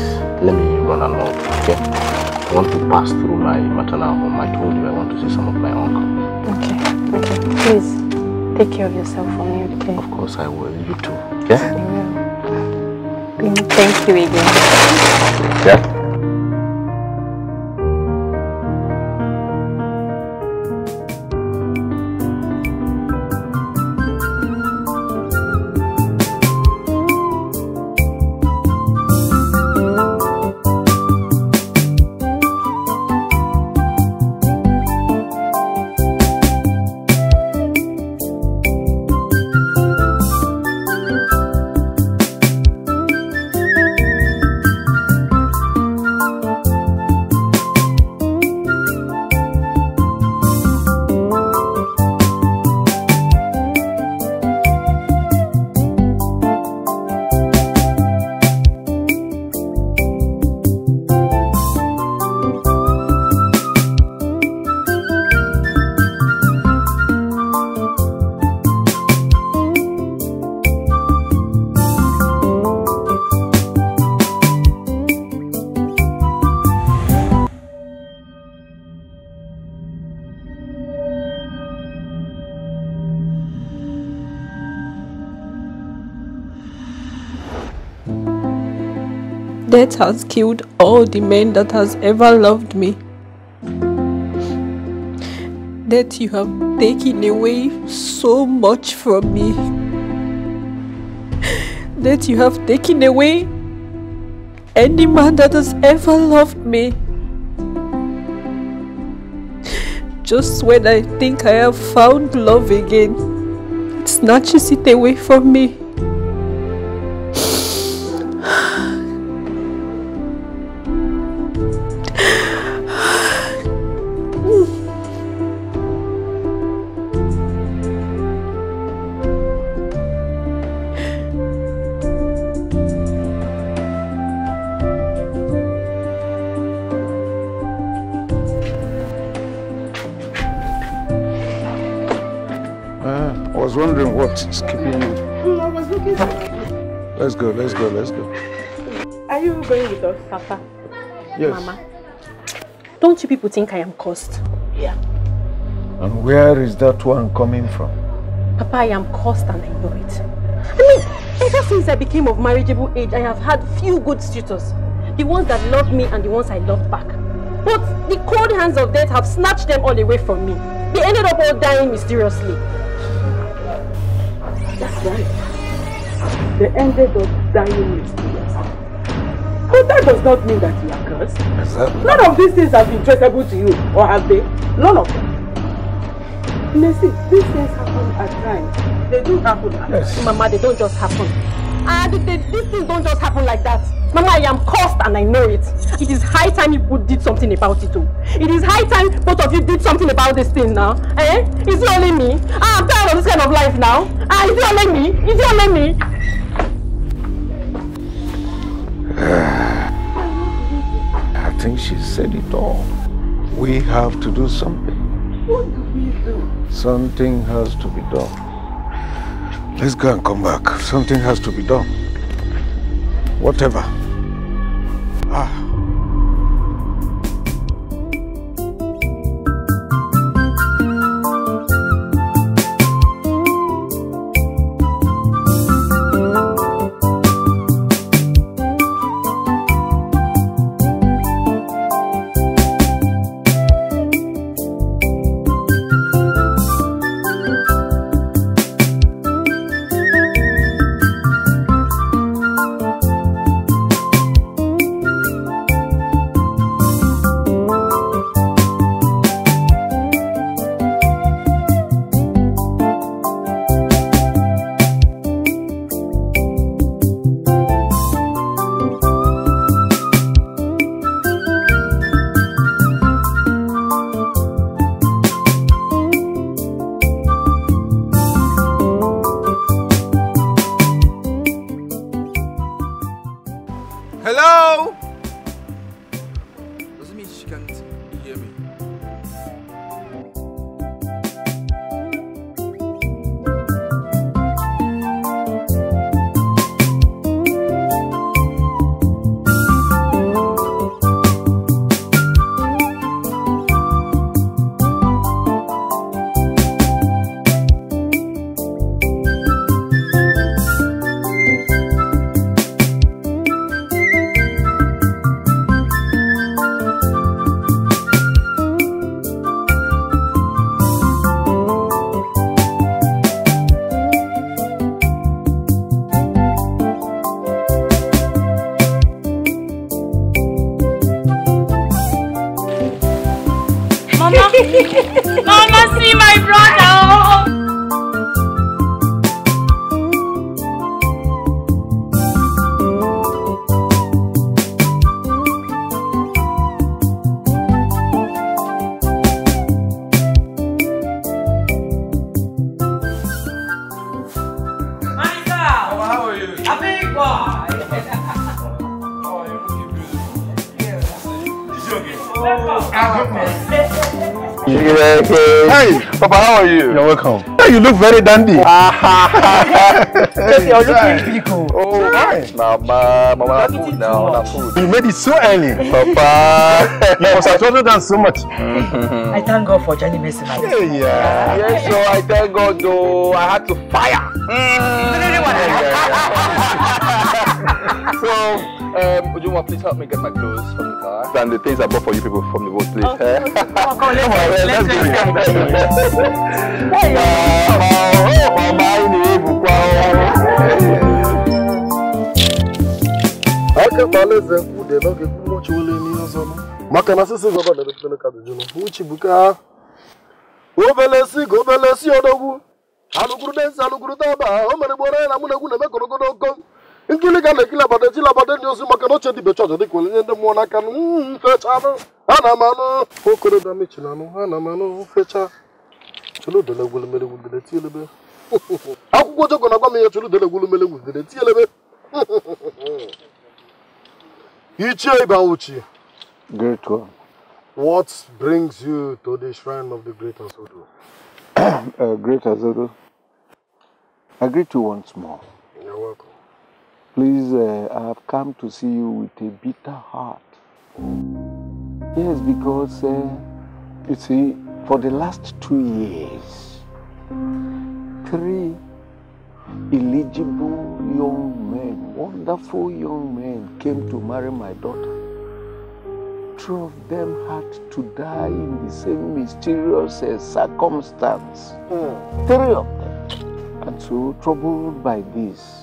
let me run along, okay? I want to pass through my maternal home. I told you I want to see some of my uncle. Okay. Okay. Please, take care of yourself for me, okay? Of course I will. You too, okay? Mm. Mm, thank you again. Yeah? has killed all the men that has ever loved me. That you have taken away so much from me. That you have taken away any man that has ever loved me. Just when I think I have found love again, it snatches it away from me. Papa. Yes. Mama. Don't you people think I am cursed? Yeah. And where is that one coming from? Papa, I am cursed and I know it. I mean, ever since I became of marriageable age, I have had few good suitors. The ones that loved me and the ones I loved back. But the cold hands of death have snatched them all away from me. They ended up all dying mysteriously. That's right. They ended up dying mysteriously. that does not mean that you are cursed. Yes, sir. None of these things have been traceable to you, or have they? None of them. Mercy, these things happen at times. They do happen at yes. times. Mama, they don't just happen. And they, these things don't just happen like that. Mama, I am cursed and I know it. It is high time you did something about it too. It is high time both of you did something about this thing now. Eh? Is it only me. Ah, I'm tired of this kind of life now. Ah, is it only me. Is it only me. think she said it all. We have to do something. What do we do? Something has to be done. Let's go and come back. Something has to be done. Whatever. Ah. Hey, Papa, how are you? You're welcome. Yeah, you look very dandy. Just ah, <laughs> you're looking people. Oh, hi. Mama, mama, na food now, na food. You made it so early. Papa. <laughs> you must have told us so much. Mm-hmm. I thank God for Johnny Messi. Yeah, yeah. Yes, so I thank God though. I had to fire. Mm. <laughs> so, Um, would you want please help me get my clothes from the car? And the things I bought for you people from the boat, please. Okay. Eh? Oh, come on, <laughs> let's, let's, let's do it. aka m alaeze kwude n'oge kwumochi ole n'ihe ọzọ maka na sisi gọva dere pere ka dịjụrụ uchi bụ ka obele si ka obele si odogwu alụgwuru densi alụgwuru daba o mere gboro ya na mụ na egwu na-eme gorogodo okom nkili ka mm, <laughs> na abada ekili abada ndị ozi maka na oche dibe chọọchị dịka onye ndị mmụọ n'aka mfechanụ ha na amanụ okorobịa mechinanụ ha na amanụ mfecha chuludele gwulumele gwugide tielebe akwụkwọ ojoko na-agwa m ihe chuludele gwulumele gwugide <laughs> tielebe ichie ibanwuchi great one what brings you to the shrine of the great azodo <coughs> uh, great azodo i greet you once more you're welcome Please, uh, I have come to see you with a bitter heart. Yes, because, uh, you see, for the last two years, three eligible young men, wonderful young men, came to marry my daughter. Two of them had to die in the same mysterious uh, circumstance. Mm. Three of them. And so, troubled by this,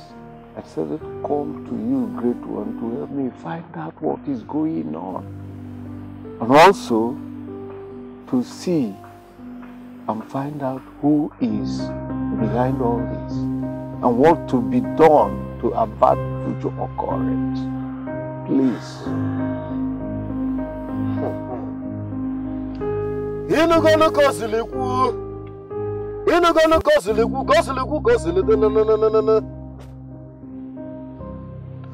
I said, Come to you, great one, to help me find out what is going on. And also to see and find out who is behind all this and what to be done to avert future occurrence. Please.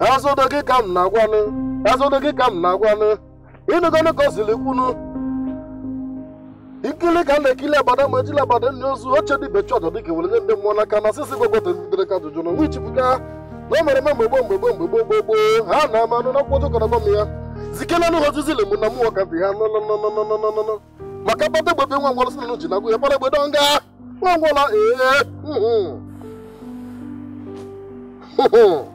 azụdo gị na-agwanụ azụdo gị ka m na-agwanụ ịnụgonụ ka o zili kwunu ikili ka na-ekili abada ma ejila abada ndị ozu oche dị bechi ọjọ dịka were ndị mmụọ n'aka na sisi gogotere ka ajụjụ na onwe ichipụga na o mere eme mgbe gboo mgbe gboo mgbe ha na-ama anụ na akwụkwọ m ya zikenanụ ha ozizi lemụ na mmụọ ka dị ha maka kpata egbebe nwa ngwọrọ sinanụ ji na ya kpara egbedo nga nwa ee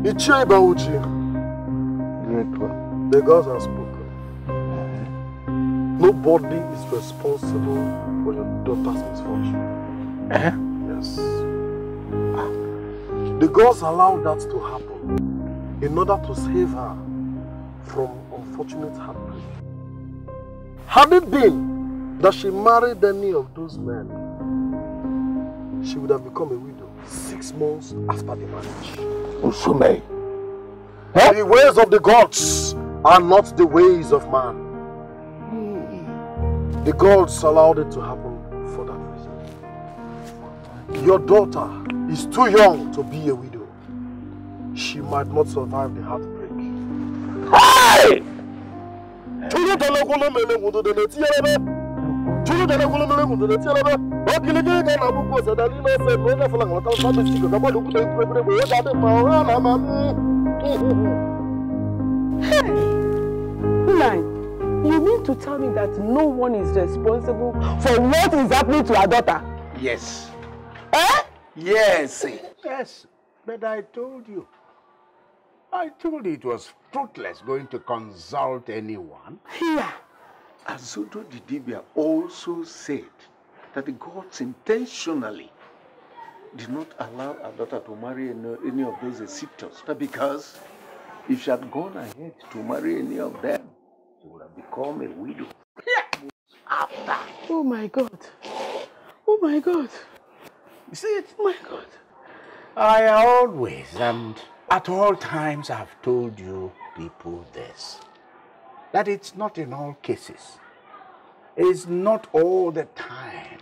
Ichie Bauchi. Great one. The gods have spoken. Nobody is responsible for your daughter's misfortune. Eh? Yes. The gods allowed that to happen in order to save her from unfortunate heartbreak. Had it been that she married any of those men, she would have become a widow six months after the marriage. Usume. Huh? The ways of the gods are not the ways of man. Hmm. The gods allowed it to happen for that reason. Your daughter is too young to be a widow. She might not survive the heartbreak. Hey! chilidana kulonole kundele tielebe wakilikili kana kukosa dalilo se nona fulanga lata lata sika kama lukuta ikubebele bwe dade mao ala mami Nine, you mean to tell me that no one is responsible for what is happening to our daughter? Yes. Eh? Yes. Yes, but I told you. I told you it was fruitless going to consult anyone. Yeah. Azudo Didibia also said that the gods intentionally did not allow her daughter to marry any, of those Egyptians because if she had gone ahead to marry any of them, she would have become a widow. After. Oh my God. Oh my God. You see it? Oh my God. I always and at all times have told you people this that it's not in all cases. It's not all the time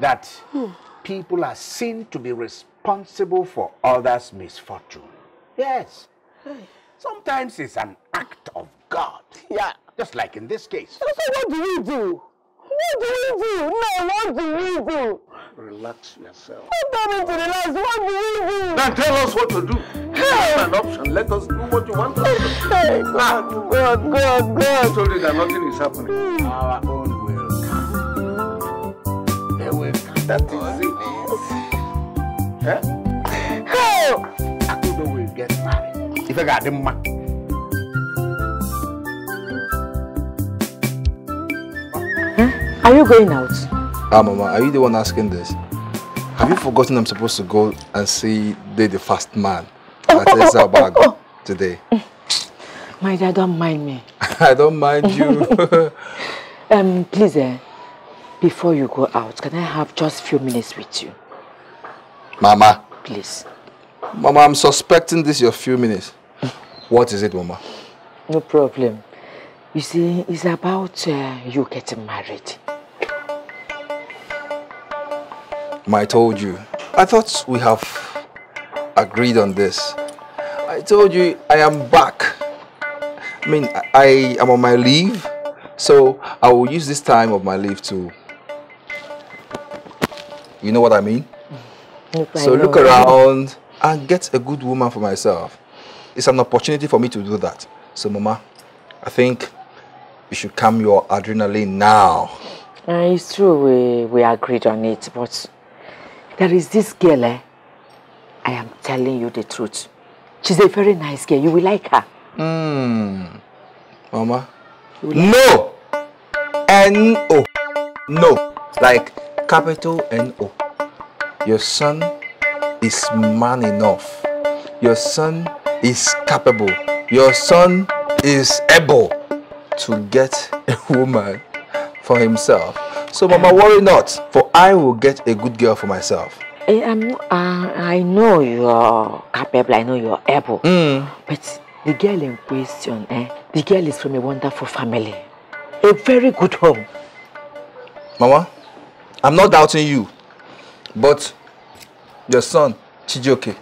that hmm. people are seen to be responsible for others' misfortune. Yes. Sometimes it's an act of God. Yeah. Just like in this case. So, what do we do? What do we do? No, what do we do? Relax yourself. Don't do to relax. What do we do? Then tell us what to do an option. Let us do what you want us to do. God, God, God, God. I told you that nothing is happening. Our own will come. They will come. That is it. Eh? How? Akudo will get married. If I got them man. Hmm? Are you going out? Ah, Mama, are you the one asking this? Have you forgotten I'm supposed to go and see the, the fast man? That is taste our bag today. My dad, don't mind me. <laughs> I don't mind you. <laughs> um, please, eh, before you go out, can I have just few minutes with you? Mama. Please. Mama, I'm suspecting this your few minutes. what is it, Mama? No problem. You see, it's about uh, you getting married. I told you. I thought we have agreed on this. I told you I am back. I mean, I am on my leave, so I will use this time of my leave to. You know what I mean? Look, so I look around and get a good woman for myself. It's an opportunity for me to do that. So, Mama, I think you should calm your adrenaline now. Uh, it's true, we, we agreed on it, but there is this girl, eh? I am telling you the truth. She's a very nice girl. You will like her. Hmm, Mama. Like no! N-O. No. Like capital N-O. Your son is man enough. Your son is capable. Your son is able to get a woman for himself. So mama, worry not, for I will get a good girl for myself. Eh, I'm, uh, I know you're capable, I know you're able. Mm. But the girl in question, eh, the girl is from a wonderful family, a very good home. Mama, I'm not doubting you, but your son, Chijioke,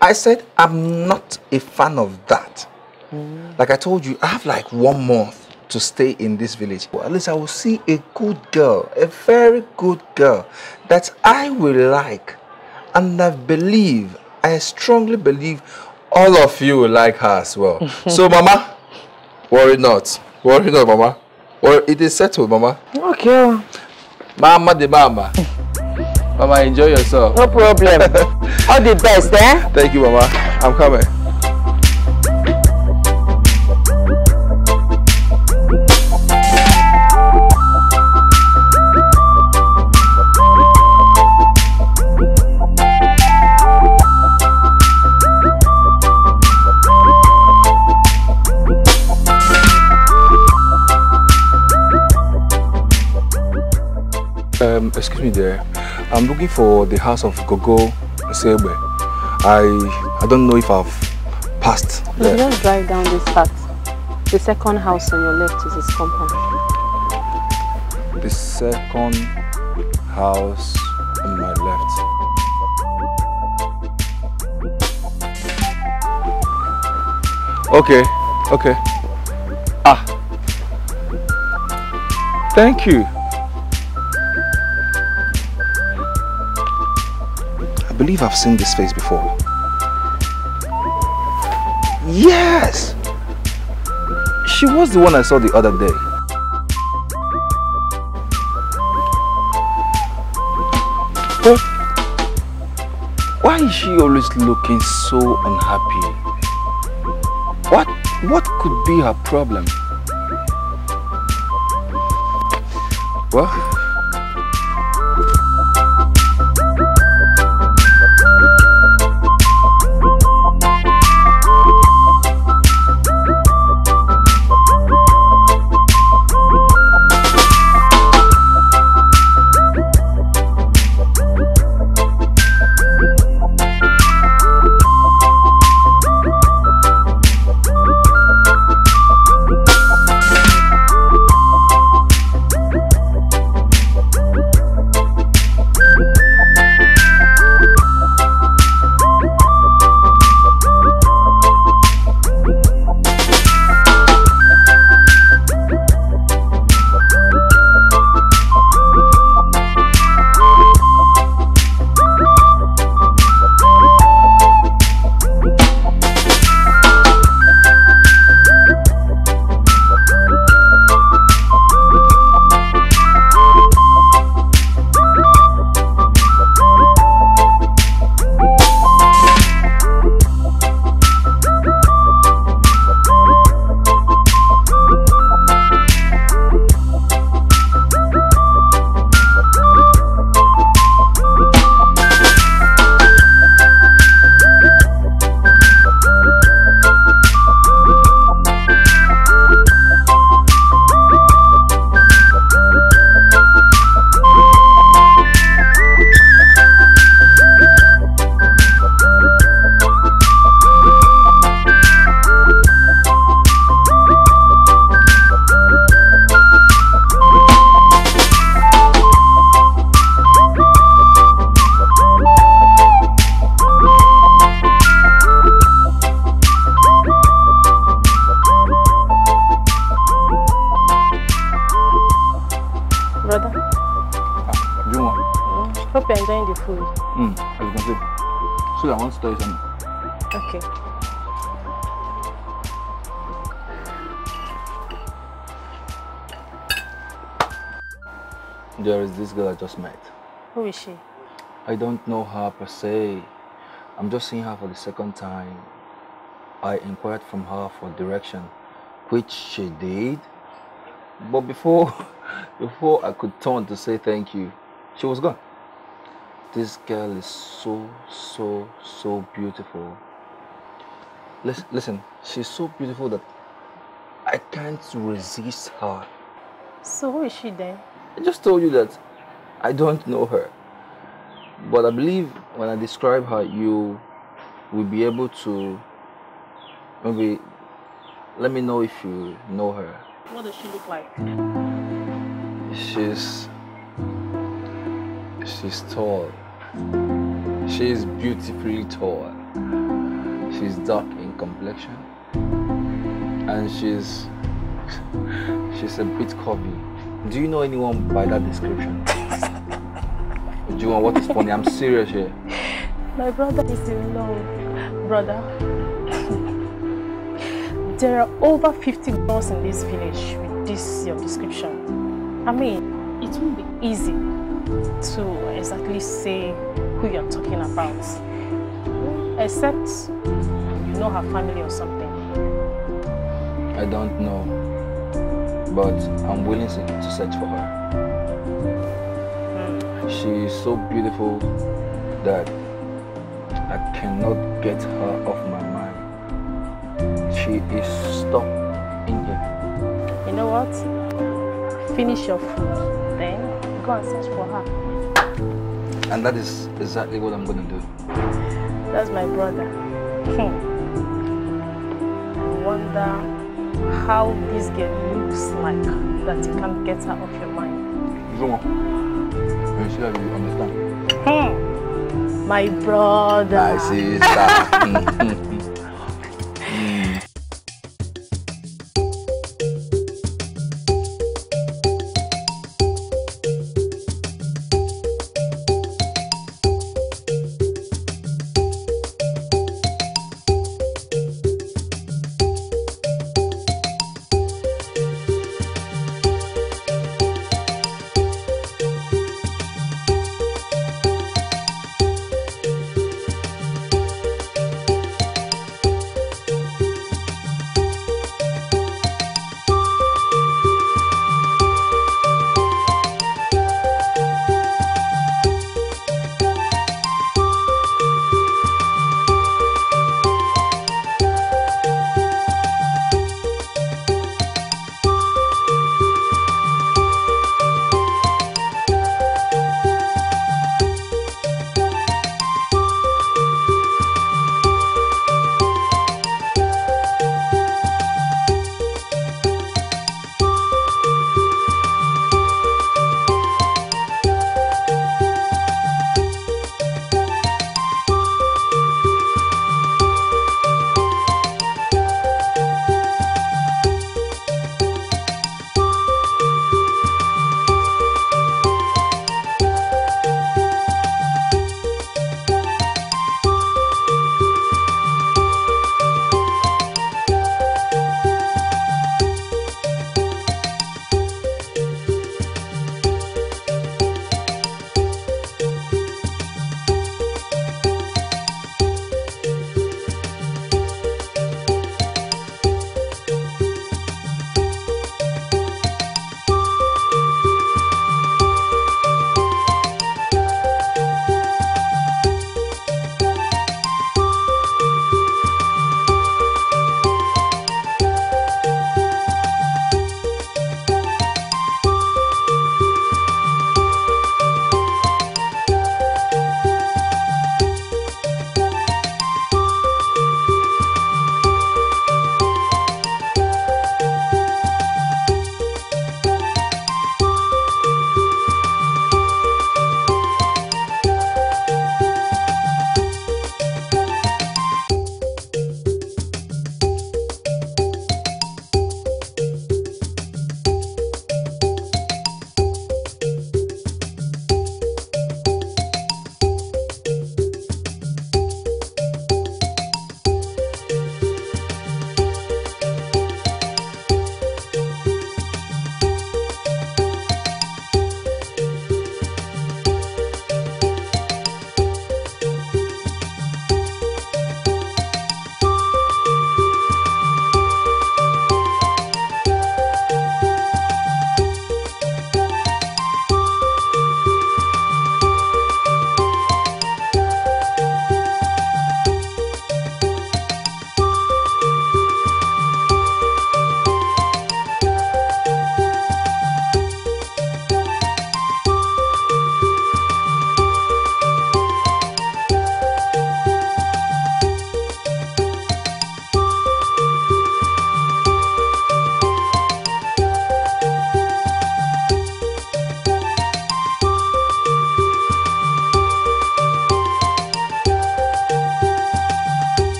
I said I'm not a fan of that. Mm. Like I told you, I have like one month to stay in this village. Well, at least I will see a good girl, a very good girl that I will like. And I believe, I strongly believe all of you will like her as well. <laughs> so mama, worry not. Worry not, mama. Or it is settled, mama. Okay. Mama the mama. mama, enjoy yourself. No problem. <laughs> all the best, eh? Thank you, mama. I'm coming. Um, excuse me there. I'm looking for the house of Gogo Sebe. I I don't know if I've passed. there. just drive down this path. The second house on your left is his compound. The second house on my left. Okay, okay. Ah. Thank you. I believe I've seen this face before. Yes! She was the one I saw the other day. But why is she always looking so unhappy? What, what could be her problem? Well, per se. I'm just seeing her for the second time. I inquired from her for direction, which she did. But before, <laughs> before I could turn to say thank you, she was gone. This girl is so, so, so beautiful. Listen, listen, she's so beautiful that I can't resist her. So who is she then? I just told you that I don't know her. But I believe when I describe her, you will be able to maybe let me know if you know her. What does she look like? She's she's tall. She's beautifully tall. She's dark in complexion, and she's <laughs> she's a bit curvy. Do you know anyone by that description? <laughs> Do you want what is funny? I'm serious here. My brother is in love. Brother, there are over 50 girls in this village with this your description. I mean, it won't be easy to exactly say who you're talking about. Except you know her family or something. I don't know, but I'm willing to search for her. Hmm. She is so beautiful that cannot get her off my mind. She is stuck in here. You know what? Finish your food, then go and search for her. And that is exactly what I'm going to do. That's my brother. Hmm. I wonder how this girl looks like that you can't get her off your mind. You You see you understand. Hmm my brother. My sister. <laughs>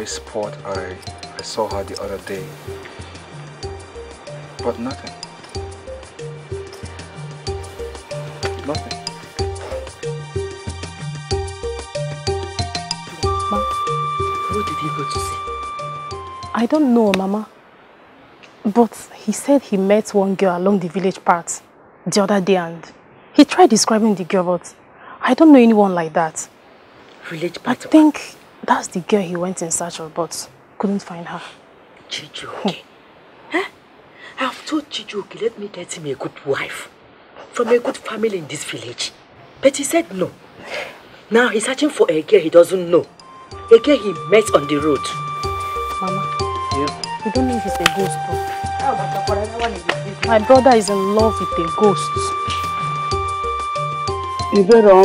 very spot I, I saw her the other day. But nothing. Nothing. what did he go to see? I don't know, Mama. But he said he met one girl along the village path the other day and he tried describing the girl, but I don't know anyone like that. Village path? I think that's the girl he went in search of, but couldn't find her. Chijuke. Huh? Hmm. Eh? I've told Chijuke, let me get him a good wife from a good family in this village. But he said no. Now he's searching for a girl he doesn't know. A girl he met on the road. Mama. Yeah? You don't know if it's a ghost, though. My brother is in love with a ghost.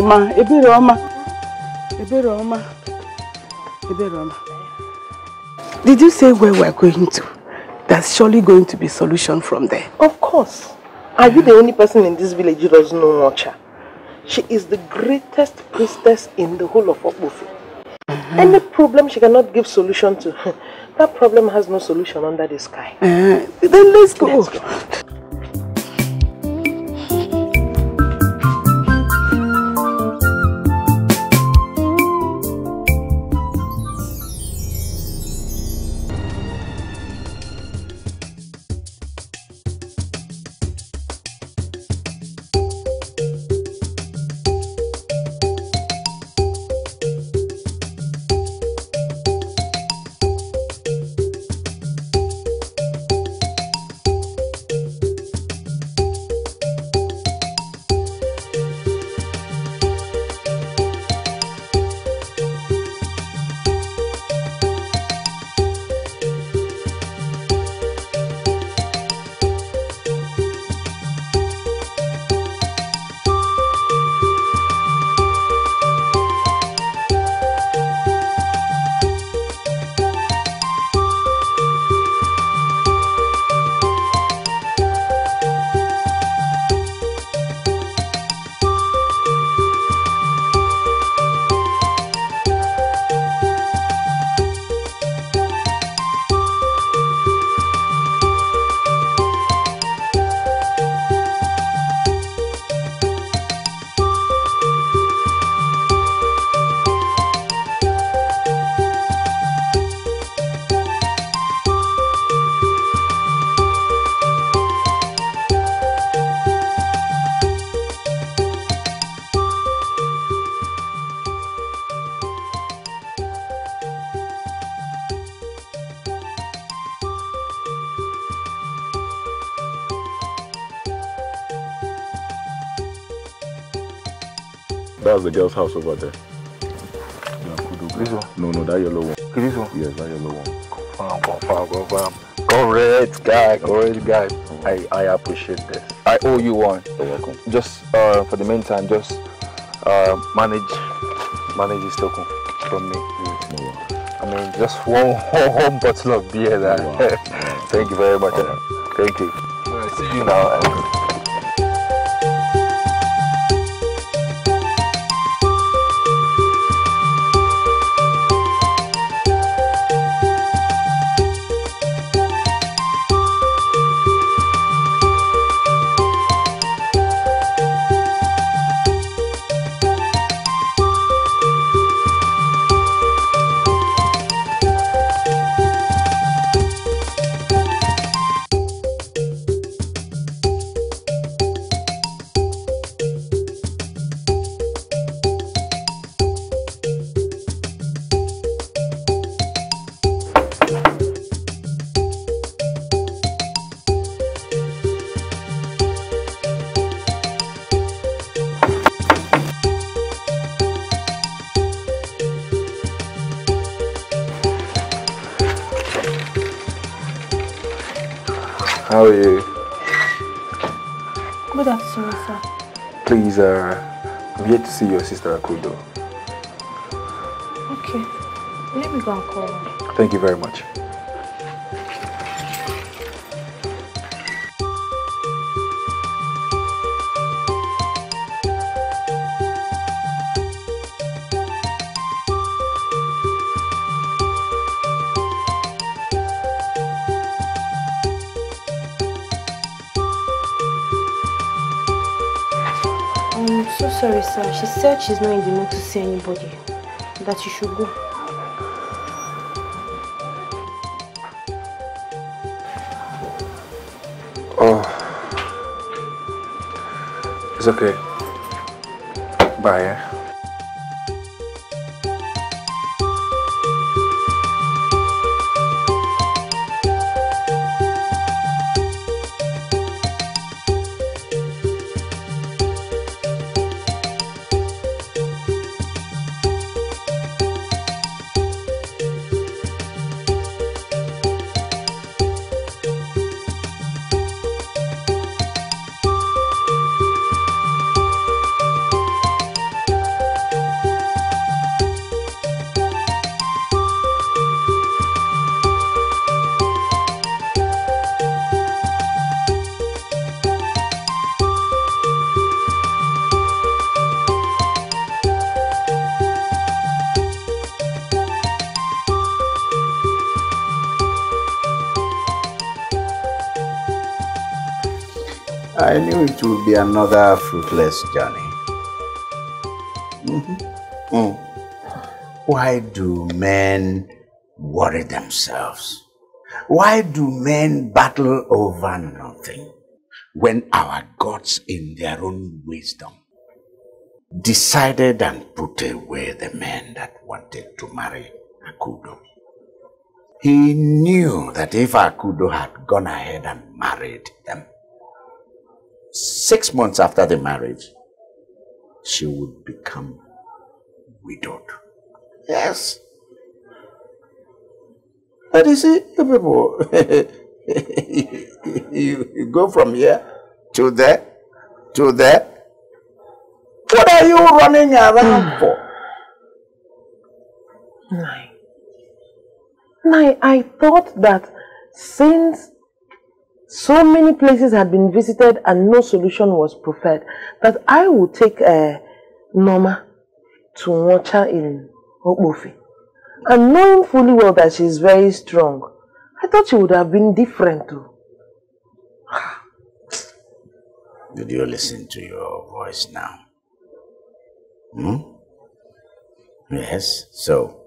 Roma, Iberoma, Roma. Did you say where we're going to? There's surely going to be solution from there. Of course. Are you the only person in this village who doesn't know Mocha? She is the greatest priestess in the whole of Okbufi. Mm -hmm. Any problem she cannot give solution to, <laughs> that problem has no solution under the sky. Uh, then let's go. Let's go. the girl's house over there. This one? No, no, that yellow one. This one? Yes, that yellow one. Confirm, confirm, confirm. Correct guy, correct guy. Oh. I, I appreciate this. I owe you one. You're welcome. Just uh, for the meantime, just uh, manage manage this token from me. no I mean, just one, <laughs> one, one bottle of beer. There. Wow. <laughs> Thank you very much. Right. Thank you. Right, see you now. said she's not in the mood to see anybody. That you should go. Oh. It's okay. Bye, eh? another fruitless journey. Mm -hmm. mm. Why do men worry themselves? Why do men battle over nothing when our gods in their own wisdom decided and put away the men that wanted to marry Akudo? He knew that if Akudo had gone ahead and married them, six months after the marriage, she would become widowed. Yes. But you see, you people, <laughs> you, you go from here to there, to there. What are you running around hmm. for? Nine. Nine, I thought that since so many places had been visited and no solution was preferred that I would take uh, Norma to watch her in Okbofi. And knowing fully well that she is very strong, I thought she would have been different too. <sighs> Did you listen to your voice now? Hmm? Yes, so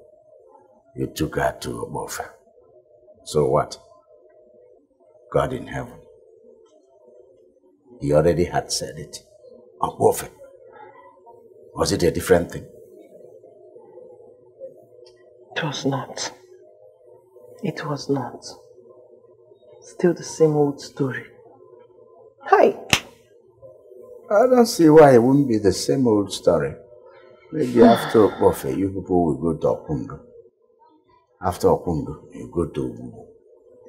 you took her to Obofa. So what? God in heaven. He already had said it. A prophet. Was it a different thing? It was not. It was not. Still the same old story. Hi. I don't see why it wouldn't be the same old story. Maybe after Okpofe, you people will go to Okundu. After Okundu, you go to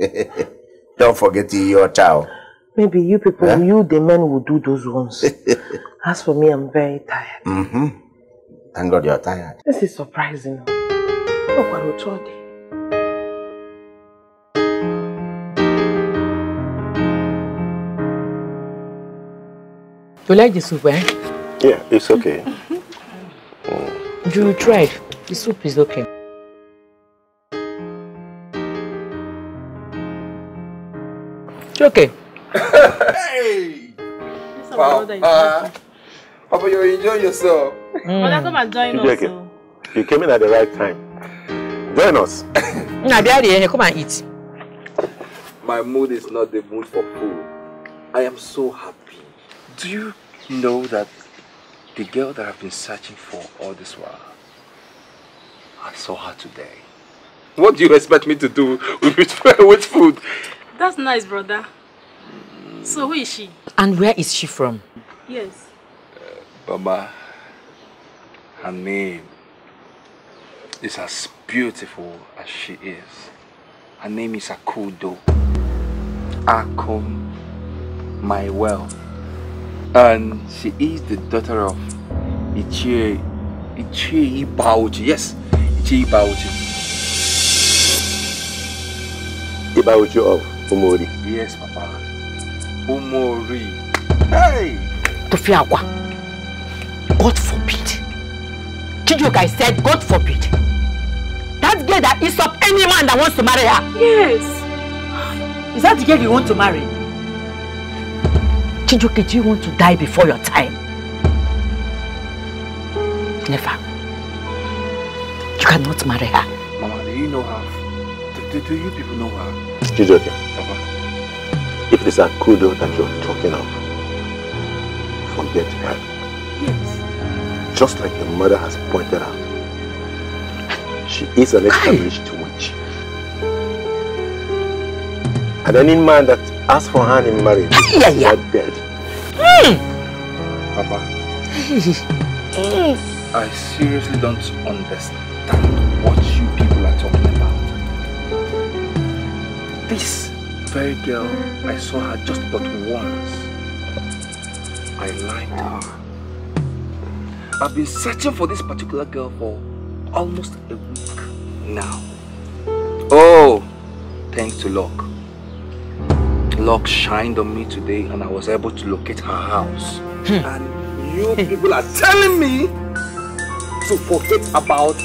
Ubu. <laughs> Don't forget your chow. Maybe you people, huh? you the men will do those ones. <laughs> As for me, I'm very tired. Mm-hmm. Thank God you're tired. This is surprising. Look oh, what we told you. like the soup, eh? Yeah, it's okay. Mm. You tried. The soup is okay. Okay. hey! Wow. Uh, Papa, you enjoy yourself. Mm. Mother, come and join us. So. You came in at the right time. Join us. nah, come and eat. My mood is not the mood for food. I am so happy. Do you know that the girl that I've been searching for all this while, I saw her today. What do you expect me to do with, <laughs> with food? That's nice, brother. So who is she? And where is she from? Yes. Uh, Baba, her name is as beautiful as she is. Her name is Akudo. Akum, my wealth. And she is the daughter of Ichie, Ichie Ibauchi. Yes, Ichie Ibauchi. Ibauchi of? Umori. Yes, Papa. Umori. Hey! Tofiakwa. God forbid. Chijuka, I said, God forbid. That girl that is up any man that wants to marry her. Yes. Is that the girl you want to marry? Chijuka, do you want to die before your time? Never. You cannot marry her. Mama, do you know her? Do, do, do you people know her? if it is Akudo that you're talking of, forget her. Yes. Just like your mother has pointed out, she is an established witch. And any man that asks for her in marriage is yeah, yeah. not dead. Mm. Papa, <laughs> I seriously don't understand what you This very girl, I saw her just but once. I liked her. I've been searching for this particular girl for almost a week now. Oh, thanks to luck. Luck shined on me today and I was able to locate her house. Hmm. and you people are telling me to forget about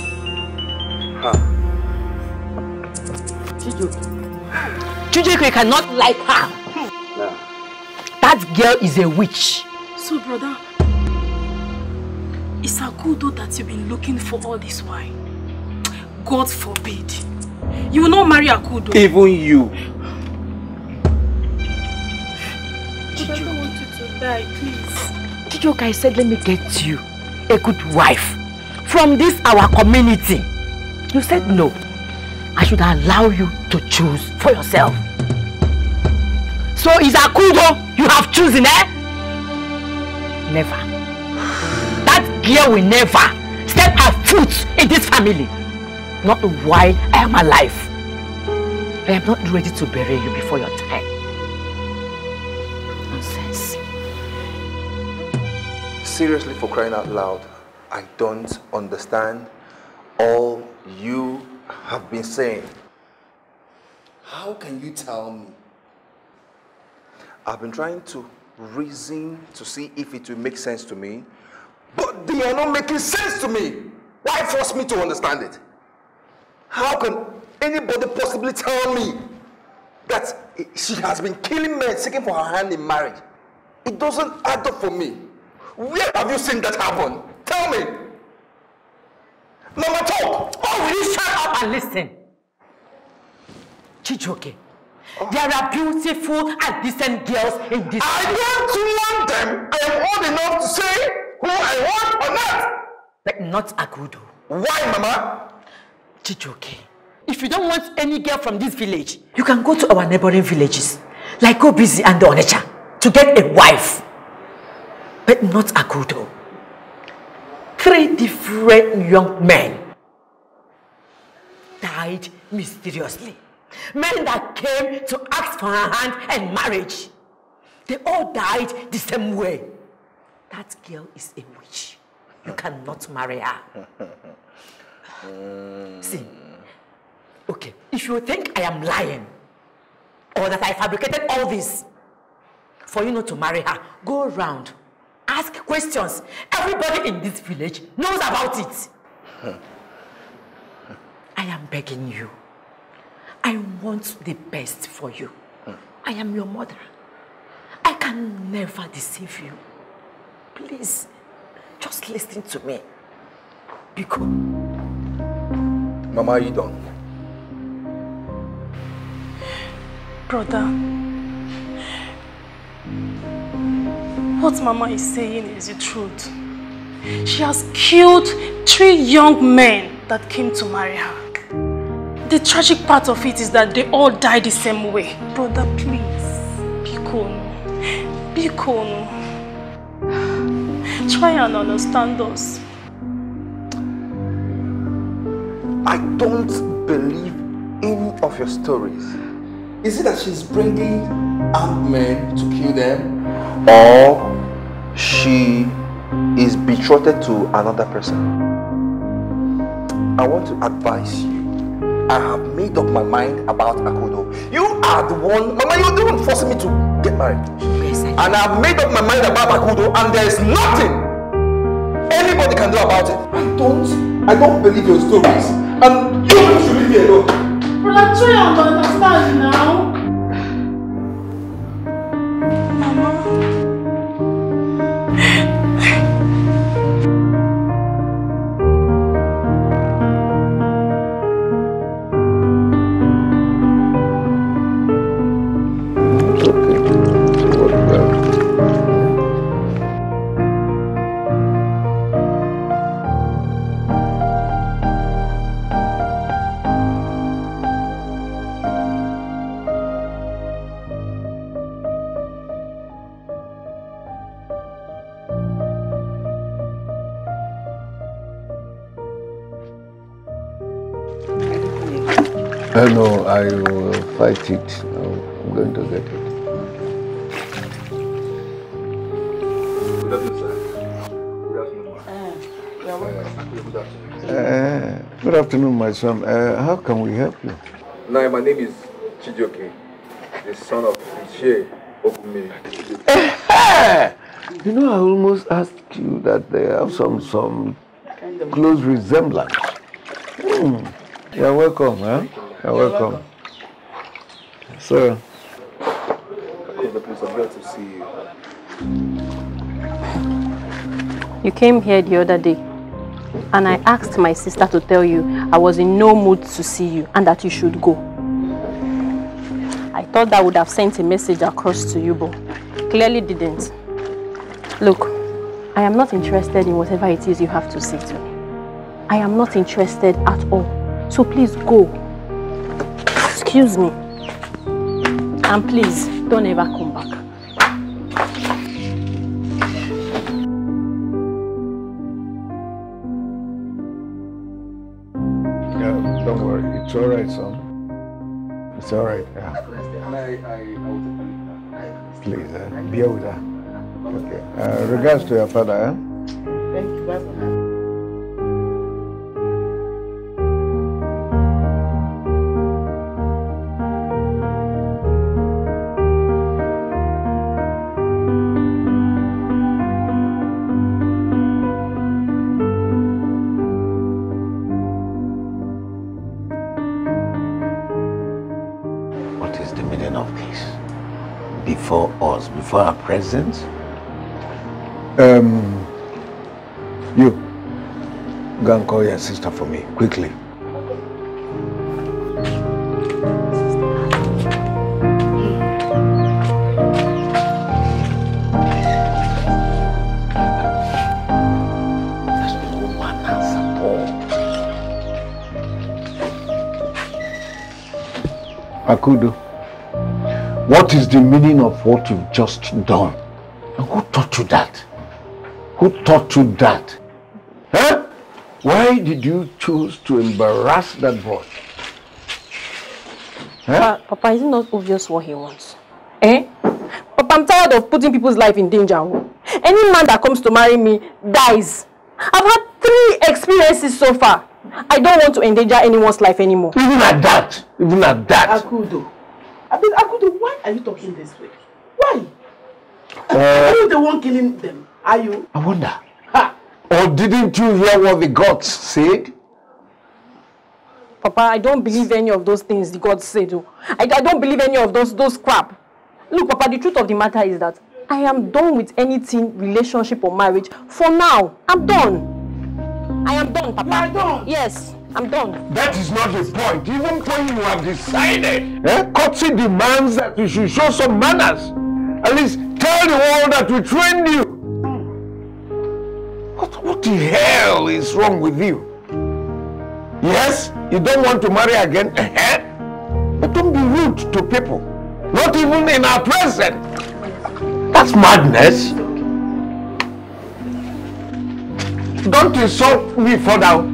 her. Chijike cannot like her. That girl is a witch. So, brother, it's a good that you've been looking for all this while. God forbid. You will not marry Akudo. Even you. I don't want you to die, please. Chijoka, I said, let me get you a good wife from this our community. You said no. I should allow you to choose for yourself. So is Akudo you have chosen, eh? Never. That girl will never step her foot in this family. Not while I am alive. I am not ready to bury you before your time. Nonsense. Seriously, for crying out loud, I don't understand all you have been saying. How can you tell me I've been trying to reason to see if it will make sense to me, but they are not making sense to me. Why force me to understand it? How can anybody possibly tell me that she has been killing men seeking for her hand in marriage? It doesn't add up for me. Where have you seen that happen? Tell me. Mama, talk. Oh, will you shut up and listen? Chichoke, there are beautiful and decent girls in this I don't want them. I am old enough to say who I want or not. But not Agudo. Why, Mama? Chijoke, if you don't want any girl from this village, you can go to our neighboring villages, like Obizi and Onecha, to get a wife. But not Agudo. Three different young men died mysteriously. Men that came to ask for her hand and marriage. They all died the same way. That girl is a witch. You cannot marry her. <laughs> See, okay, if you think I am lying, or that I fabricated all this, for you not to marry her, go around, ask questions. Everybody in this village knows about it. <laughs> I am begging you. I want the best for you. Mm. I am your mother. I can never deceive you. Please, just listen to me. Because... Mama, you don't. Brother, what Mama is saying is the truth. She has killed three young men that came to marry her. The tragic part of it is that they all die the same way. Brother, please. Bikono. Bikono. Try and understand us. I don't believe any of your stories. Is it that she's bringing armed men to kill them? Or she is betrothed to another person? I want to advise you I have made up my mind about Akodo. You are the one, Mama, you're the one forcing me to get married. Yes, I And I have made up my mind about Akodo, and there is nothing anybody can do about it. I don't, I don't believe your stories, and you should leave me alone. Well, I try to understand now. afternoon, my son. Uh, how can we help you? No, my name is Chijoke, the son of Ishe Okume. <laughs> you know, I almost asked you that they have some some close resemblance. Hmm. You're welcome, huh? You're welcome. So, the place I'm glad to see you. You came here the other day. And I asked my sister to tell you I was in no mood to see you and that you should go. I thought that would have sent a message across to you, but clearly didn't. Look, I am not interested in whatever it is you have to say to me. I am not interested at all. So please go. Excuse me. And please, don't ever come. right, son. It's all right. Yeah. Please, uh, eh? bear with her. Okay. Uh, regards to your father. Eh? Thank you, for our presence. Um, you, go and call your sister for me, quickly. Akudo. What is the meaning of what you've just done? And who taught you that? Who taught you that? Huh? Why did you choose to embarrass that boy? Huh? Papa, is it not obvious what he wants? Eh? Papa, I'm tired of putting people's life in danger. Any man that comes to marry me dies. I've had three experiences so far. I don't want to endanger anyone's life anymore. Even at that? Even at that? Akudo. I mean, why are you talking this way? Why? Uh, are you the one killing them? Are you? I wonder. Ha. Or didn't you hear what the gods said? Papa, I don't believe any of those things the gods said. Oh. I, I don't believe any of those those crap. Look, Papa, the truth of the matter is that I am done with anything, relationship or marriage. For now, I'm done. I am done, Papa. You are done? Yes. I'm done. That is not the point. Even when you have decided, eh, courtesy demands that you should show some manners. At least tell the world that we trained you. What, what the hell is wrong with you? Yes, you don't want to marry again, eh? eh? but don't be rude to people. Not even in our presence. That's madness. Don't insult me further.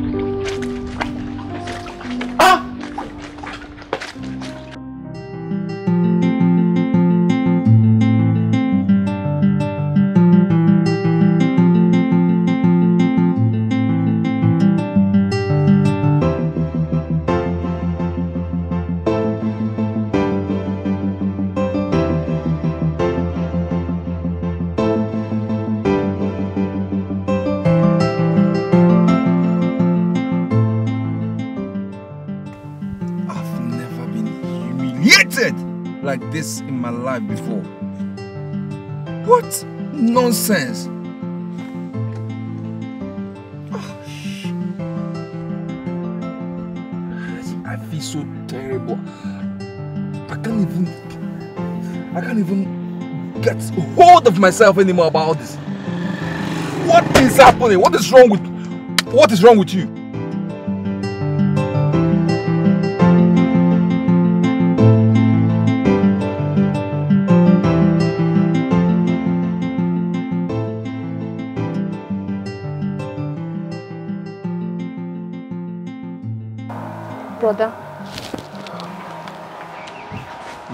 life before. What nonsense! Ah, I feel so terrible. I can't even. I can't even get hold of myself anymore about this. What is happening? What is wrong with? What is wrong with you?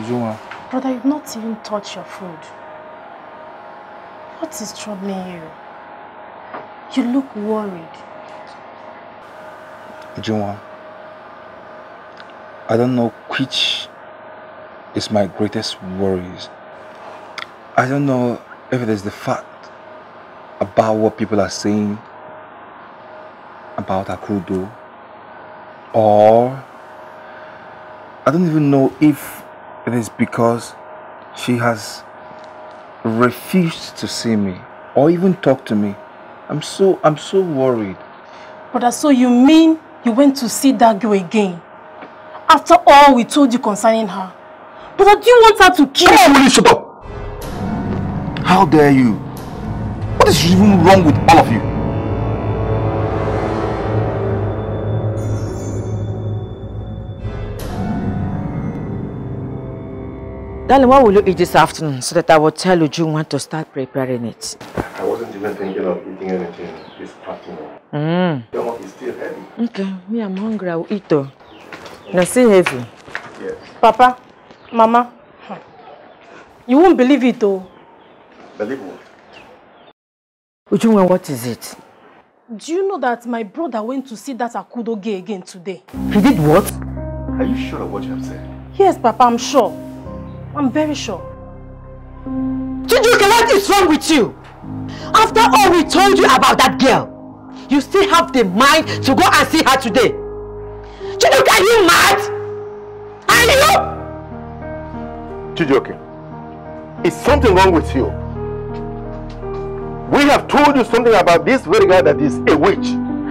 Ijoma. Brother, you've not even touched your food. What is troubling you? You look worried. Ijoma, I don't know which is my greatest worries. I don't know if it is the fact about what people are saying about Akudo or I don't even know if it is because she has refused to see me or even talk to me. I'm so, I'm so worried. Brother, so you mean you went to see that girl again? After all we told you concerning her. Brother, do you want her to kill you? Will you shut up? How dare you? What is even wrong with all of you? Darling, what will you eat this afternoon so that I will tell Uju when to start preparing it? I wasn't even thinking of eating anything this afternoon. Mm. Your mouth is still heavy. Okay, me, I'm hungry. I will eat though. Now, see, heavy. Yes. Papa, Mama, you won't believe it though. Believe what? Uju, what is it? Do you know that my brother went to see that Akudo gay again today? He did what? Are you sure of what you have said? Yes, Papa, I'm sure. I'm very sure. Chijuke, what is wrong with you? After all we told you about that girl, you still have the mind to go and see her today. Chijuke, are you mad? Are you? Chijuke, is something wrong with you? We have told you something about this very girl that is a witch.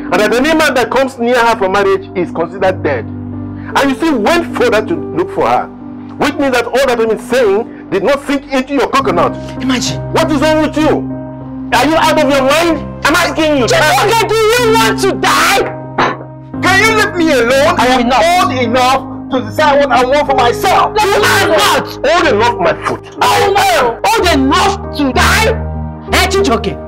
And that any man that comes near her for marriage is considered dead. And you still went further to look for her. Which means that all that I'm saying did not sink into your coconut. Imagine. What is wrong with you? Are you out of your mind? I'm asking you. Chibuka, do you want to die? Can you leave me alone? I am not. old enough to decide what I want for myself. Let you are not old enough, my foot. Oh no! Old enough to die? Are you joking?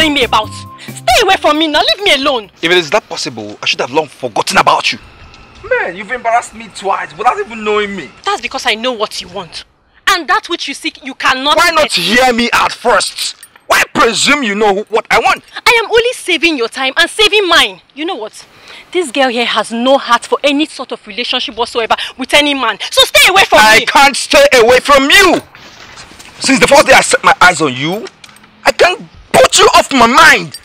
following me about. Stay away from me now, leave me alone. If it is that possible, I should have long forgotten about you. Man, you've embarrassed me twice without even knowing me. That's because I know what you want. And that which you seek, you cannot Why not get. hear me at first? Why presume you know what I want? I am only saving your time and saving mine. You know what? This girl here has no heart for any sort of relationship whatsoever with any man. So stay away from I me. I can't stay away from you. Since the first day I set my eyes on you, I can't put you off my mind.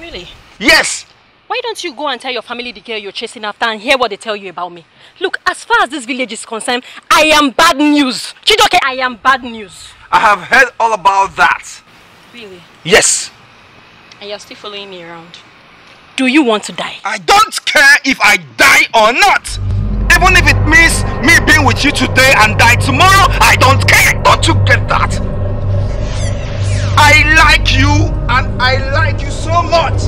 Really? Yes. Why don't you go and tell your family the girl you're chasing after and hear what they tell you about me? Look, as far as this village is concerned, I am bad news. Chidoke, I am bad news. I have heard all about that. Really? Yes. And you're still following me around. Do you want to die? I don't care if I die or not. Even if it means me being with you today and die tomorrow, I don't care. Don't you get that? I like you and I like you so much.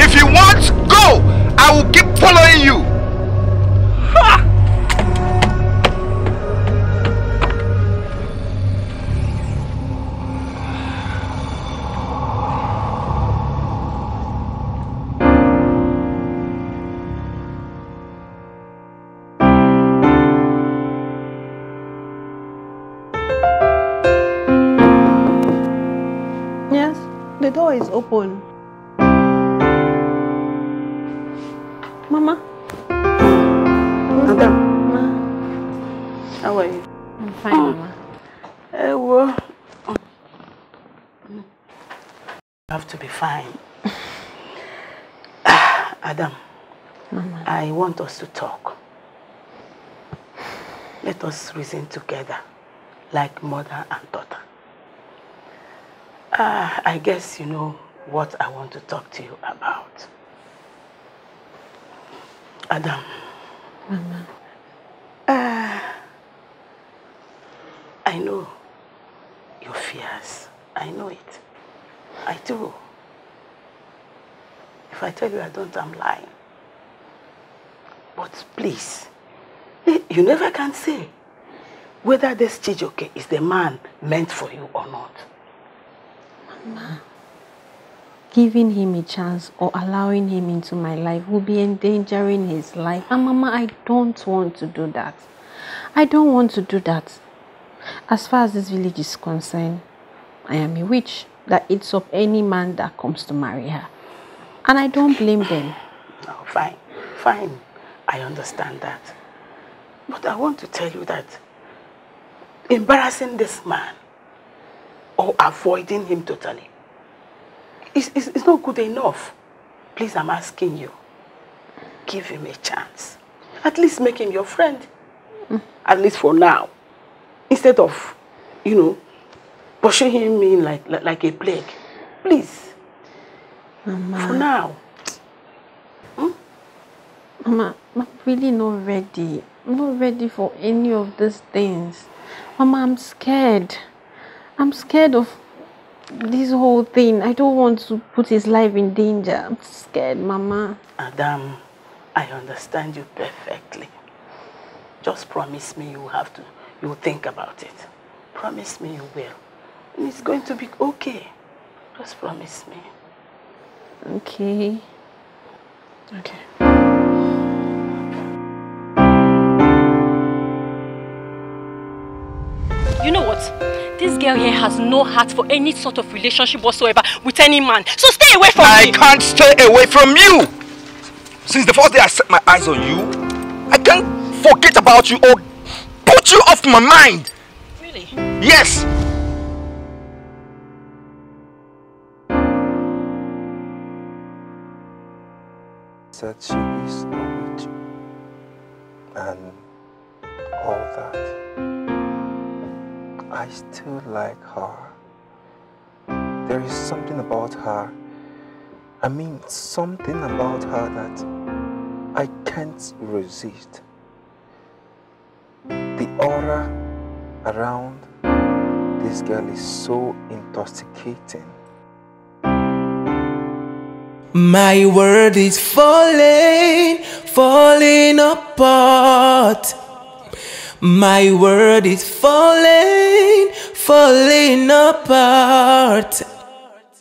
If you want, go. I will keep following you. Ha! door is open. Mama. Madam. Ma. How are you? I'm fine, oh. Mama. Ewo. Eh, oh. You have to be fine. <sighs> Adam, Mama. I want us to talk. Let us reason together like mother and daughter. Uh, I guess you know what I want to talk to you about. Adam. Mama. Uh, I know your fears. I know it. I do. If I tell you I don't, I'm lying. But please, you never can say whether this Chijoke is the man meant for you or not giving him a chance or allowing him into my life will be endangering his life. And Mama, I don't want to do that. I don't want to do that. As far as this village is concerned, I am a witch that eats up any man that comes to marry her. And I don't blame them. No, fine, fine. I understand that. But I want to tell you that embarrassing this man or avoiding him totally. It's, it's, it's not good enough. Please, I'm asking you. Give him a chance. At least make him your friend. Mm. At least for now. Instead of, you know, pushing him in like, like, like a plague. Please. Mama. For now. Hmm? Mama, I'm really not ready. I'm not ready for any of these things. Mama, I'm scared. I'm scared of this whole thing. I don't want to put his life in danger. I'm scared, Mama. Adam, I understand you perfectly. Just promise me you have to, you will think about it. Promise me you will. And it's going to be okay. Just promise me. Okay. Okay. what? This girl here has no heart for any sort of relationship whatsoever with any man. So stay away from I me. I can't stay away from you. Since the first day I set my eyes on you, I can't forget about you or put you off my mind. Really? Yes. That she is not with you and all that. I still like her. There is something about her. I mean, something about her that I can't resist. The aura around this girl is so intoxicating. My world is falling, falling apart. My world is falling, falling apart.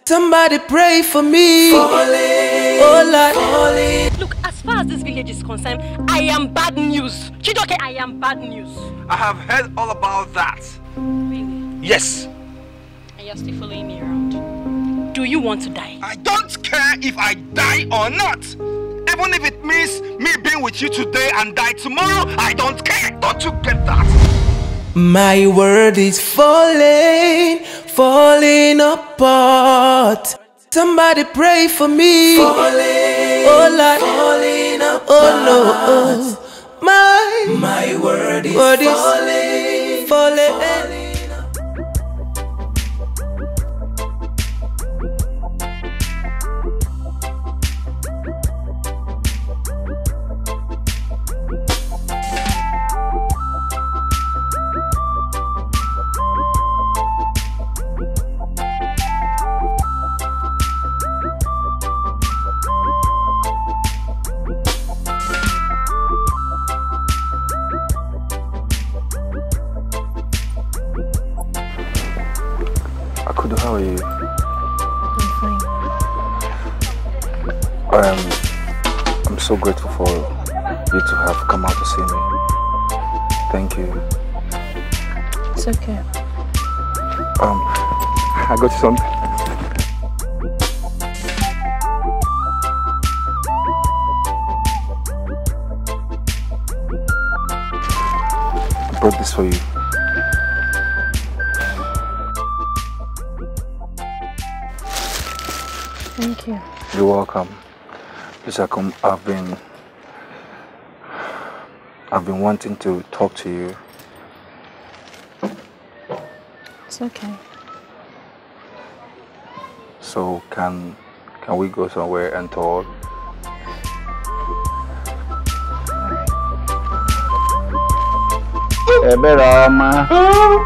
Somebody pray for me. Falling, oh, like, falling. Look, as far as this village is concerned, I am bad news. Chidoke, I am bad news. I have heard all about that. Really? Yes. And you're still following me around. Do you want to die? I don't care if I die or not. Even if it means me being with you today and die tomorrow, I don't care. Don't you get that? My world is falling, falling apart. Somebody pray for me. Falling, oh Lord. falling oh, apart. Oh no. Oh. My, my is, is falling, falling, falling. wanting to talk to you. It's okay. So can can we go somewhere and talk? Hey, better, ma. Oh,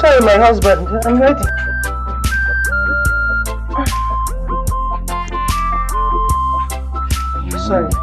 sorry, my husband. I'm ready. Sorry.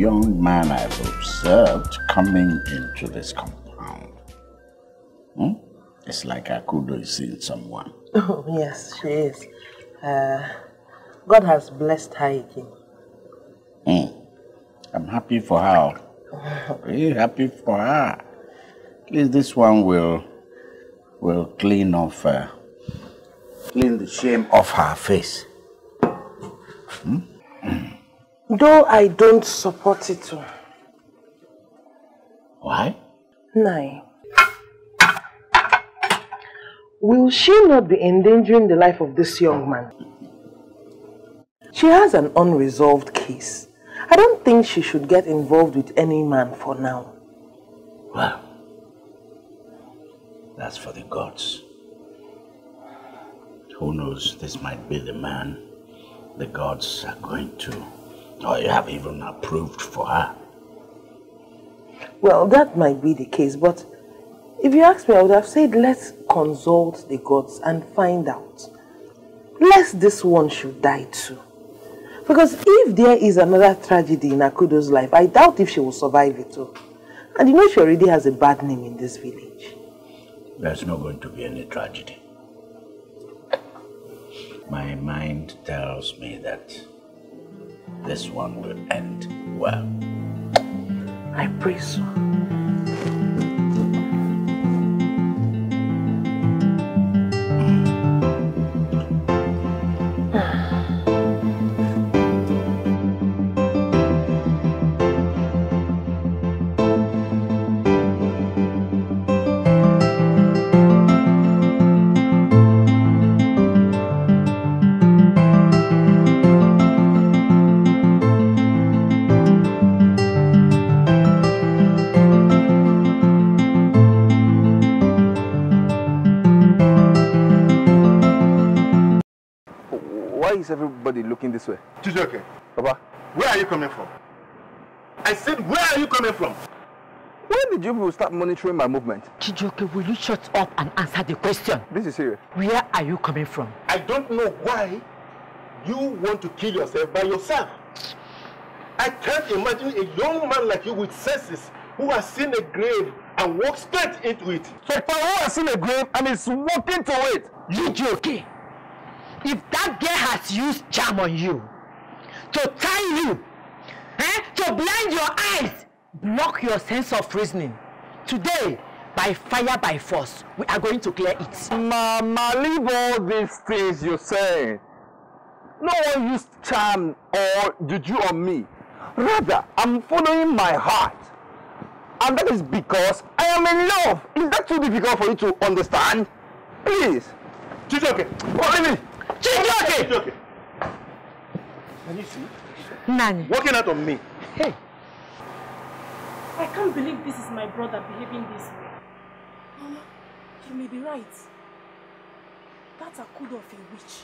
young man I've observed coming into this compound. Hmm? It's like Akudo is seeing someone. <laughs> Oh, yes, she is. Uh, God has blessed her again. Mm. I'm happy for her. Very happy for her. At least this one will will clean off her. Uh, clean the shame off her face. Hmm? <clears throat> Though I don't support it. Why? Nine. Will she not be endangering the life of this young man? She has an unresolved case. I don't think she should get involved with any man for now. Well, that's for the gods. Who knows, this might be the man the gods are going to I have even approved for her. Well, that might be the case, but if you ask me, I would have said, let's consult the gods and find out. Lest this one should die too. Because if there is another tragedy in Akudo's life, I doubt if she will survive it all. And you know she already has a bad name in this village. There's not going to be any tragedy. My mind tells me that this one will end well. I pray so. this way. Chijoke. Papa. Where are you coming from? I said, where are you coming from? When did you start monitoring my movement? Chijoke, will you shut up and answer the question? This is serious. Where are you coming from? I don't know why you want to kill yourself by yourself. I can't imagine a young man like you with senses who has seen a grave and walks straight into it. So for who has seen a grave and is walking to it? You joking? if that girl has used charm on you to tie you eh, to blind your eyes block your sense of reasoning today by fire by force we are going to clear it. mama leave all these things you say no one used charm or juju on me rather i'm following my heart and that is because i am in love is that too difficult for you to understand please. juju okay follow me. Chijioke! Chijioke! Can you see? Nani? working out on me. Hey! I can't believe this is my brother behaving this way. Mama, you may be right. That Akudo of a witch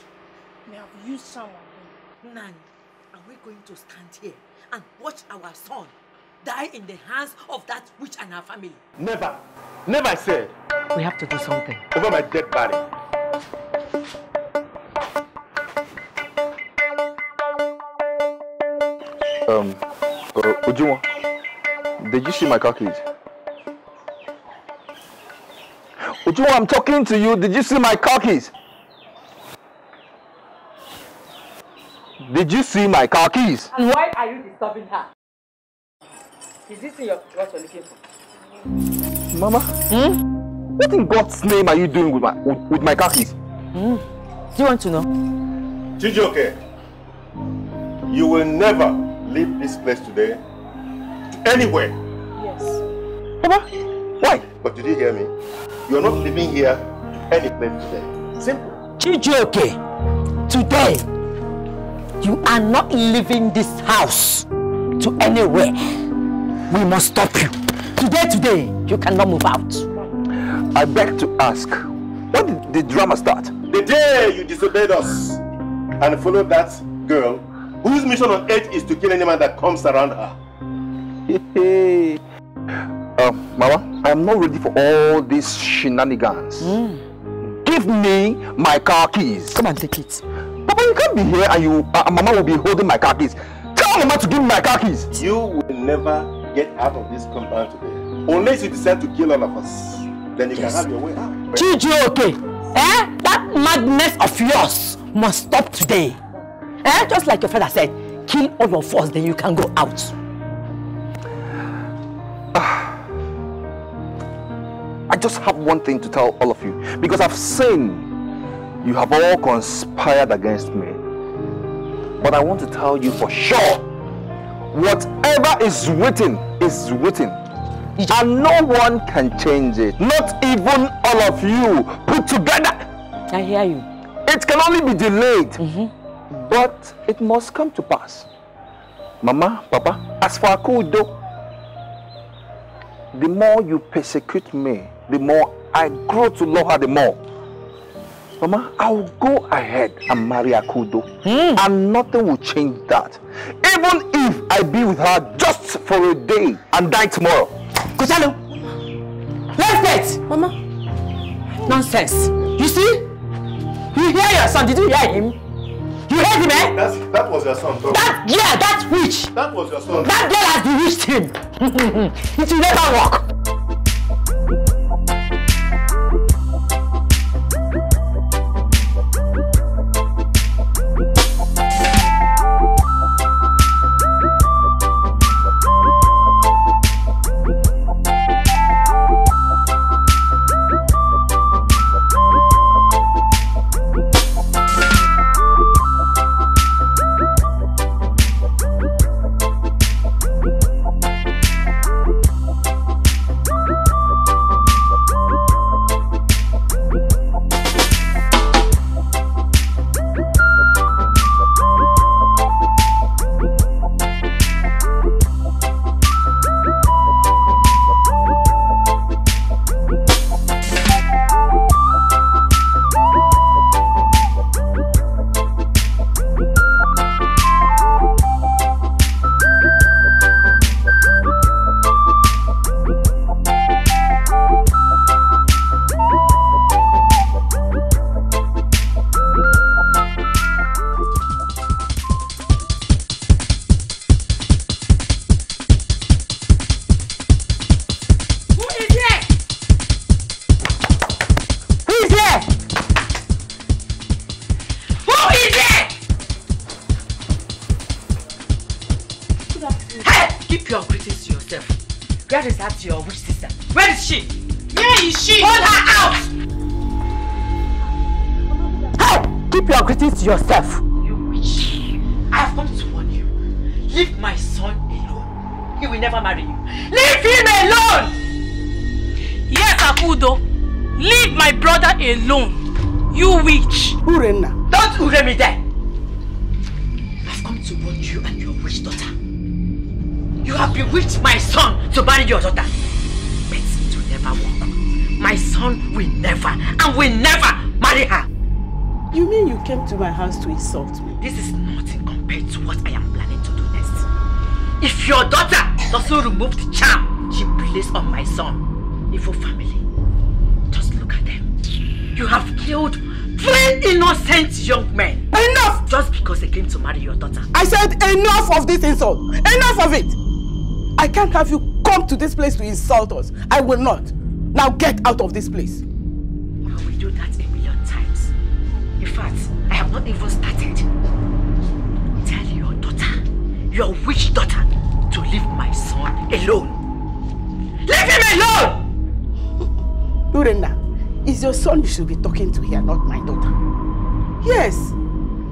may have used someone. Nani, are we going to stand here and watch our son die in the hands of that witch and her family? Never. Never, I said. We have to do something. Over my dead body. Um, uh, Ujuma, did you see my car keys? Ujuma, I'm talking to you. Did you see my car keys? Did you see my car keys? And why are you disturbing her? Is this your, what you're looking for? Mama? Hmm? What in God's name are you doing with my with, with my car keys? Hmm. Do you want to know? Chijoke, you will never leave this place today anywhere. Yes. Papa, why? But did you hear me? You're not leaving here anywhere any place today. Simple. Chijioke, today, you are not leaving this house to anywhere. We must stop you. Today, today, you cannot move out. I beg to ask, when did the drama start? The day you disobeyed us and followed that girl whose mission on earth is to kill any man that comes around her. uh, <laughs> Mama, I'm not ready for all these shenanigans. Mm. Give me my car keys. Come and take it. Papa, you can't be here and you, uh, uh, Mama will be holding my car keys. Tell Mama to give me my car keys. You will never get out of this compound today. Unless you decide to kill all of us. Then you yes. can have your way out. okay. Eh? That madness of yours must stop today. Eh? Just like your father said, kill all of us, then you can go out. Ah. I just have one thing to tell all of you. Because I've seen you have all conspired against me. But I want to tell you for sure, whatever is written is written. And no one can change it. Not even all of you put together. I hear you. It can only be delayed. Mm -hmm. But it must come to pass. Mama, Papa, as for Akudo, the more you persecute me, the more I grow to love her the more. Mama, I will go ahead and marry Akudo. Mm. And nothing will change that. Even if I be with her just for a day and die tomorrow. Kuchalo, let's date! Mama. Nonsense. You see? You hear your son. Did you hear him? You heard him, eh? That's, that was your son, bro. That, yeah, that witch. That was your son. That girl has bewitched him. <laughs> it will never work. son, Ifo family. Just look at them. You have killed three innocent young men. Enough! Just because they came to marry your daughter. I said enough of this insult. Enough of it! I can't have you come to this place to insult us. I will not. Now get out of this place. should be talking to here, not my daughter. Yes,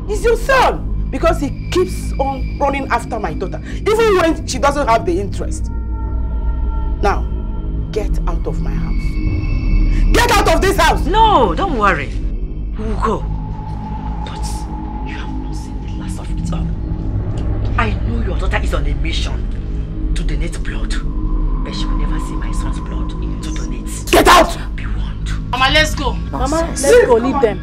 it's your son because he keeps on running after my daughter, even when she doesn't have the interest. Now, get out of my house. Get out of this house! No, don't worry. We'll go. go leave them.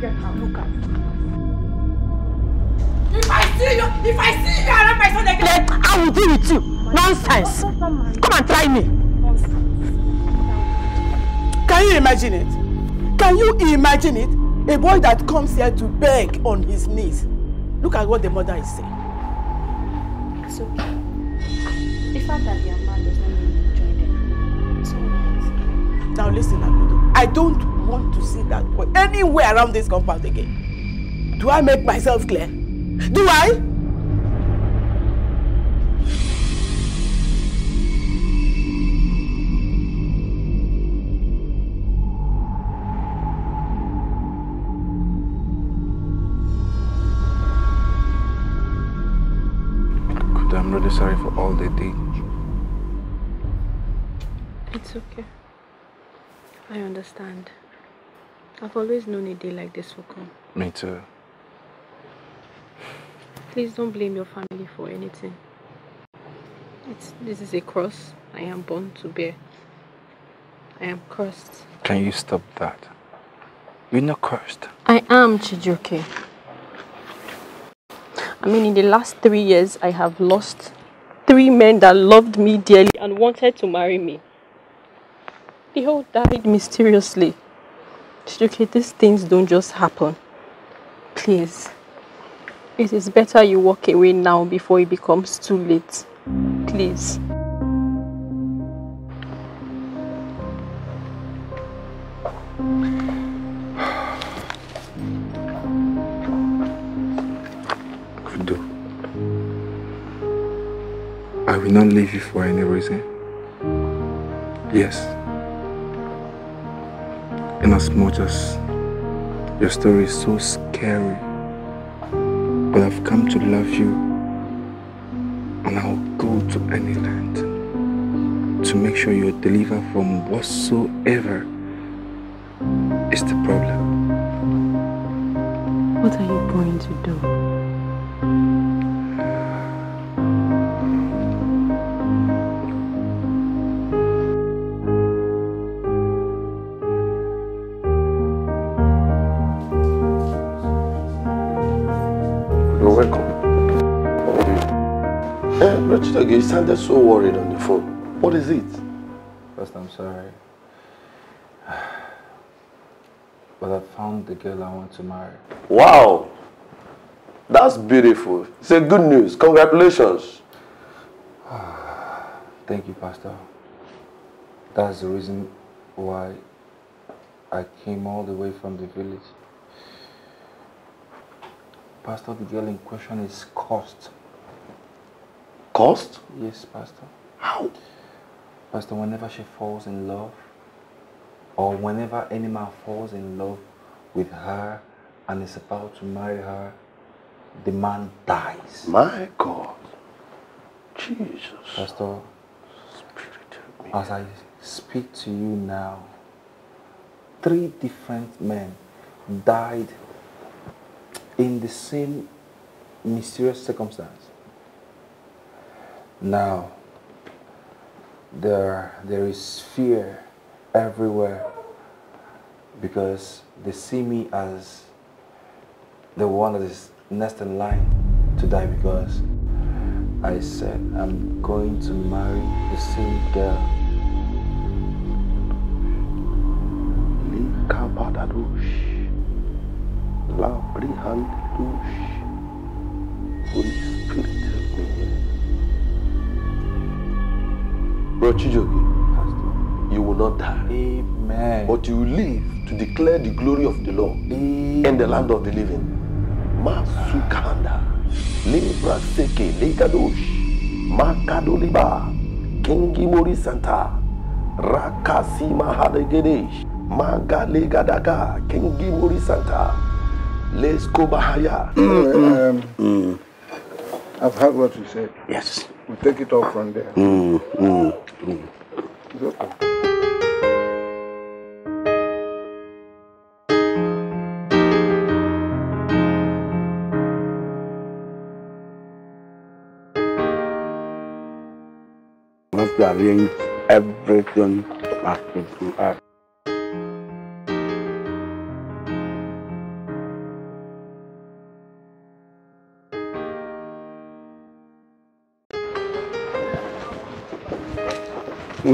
if I see you, if I see you around my son again, then I will deal with you. Nonsense. Come and try me. Can you imagine it? Can you imagine it? A boy that comes here to beg on his knees. Look at what the mother is saying. It's okay. The fact that they are mad mean you join them. It's all Now listen, Akodo. I don't want to see that boy anywhere around this compound again. Do I make myself clear? Do I? I'm really sorry for all they did. It's okay. I understand. I've always known a day like this will come. Me too. Please don't blame your family for anything. It's, this is a cross I am born to bear. I am cursed. Can you stop that? You're not cursed. I am, Chijuke. I mean, in the last three years, I have lost three men that loved me dearly and wanted to marry me. They all died mysteriously. Chiduke, these things don't just happen. Please. It is better you walk away now before it becomes too late. Please. Kudo. I will not leave you for any reason. Yes in as much as your story is so scary. But I've come to love you and I'll go to any land to make sure you're delivered from whatsoever is the problem. What are you going to do? you sounded so worried on the phone. What is it? First, I'm sorry. But I found the girl I want to marry. Wow! That's beautiful. It's a good news. Congratulations. <sighs> Thank you, Pastor. That's the reason why I came all the way from the village. Pastor, the girl in question is cursed Caused? Yes, Pastor. How? Pastor, whenever she falls in love, or whenever any man falls in love with her and is about to marry her, the man dies. My God. Jesus. Pastor, as I speak to you now, three different men died in the same mysterious circumstance. Now, there, there is fear everywhere because they see me as the one that is next in line to die because I said I'm going to marry the same girl. Police. Bro Chijogi, you will not die. Amen. But you will live to declare the glory of the Lord Amen. in the land of the living. Masukanda, Libra Seke, Likadosh, Makadoliba, Kingi Mori Santa, Rakasi Mahadagedesh, Magalegadaka, Kingi Mori Santa, Leskobahaya. Mm -mm. mm. mm. mm. I've heard what you said. Yes. We'll take it off from there. Mm, mm, mm. It's okay. We have to arrange everything back to us.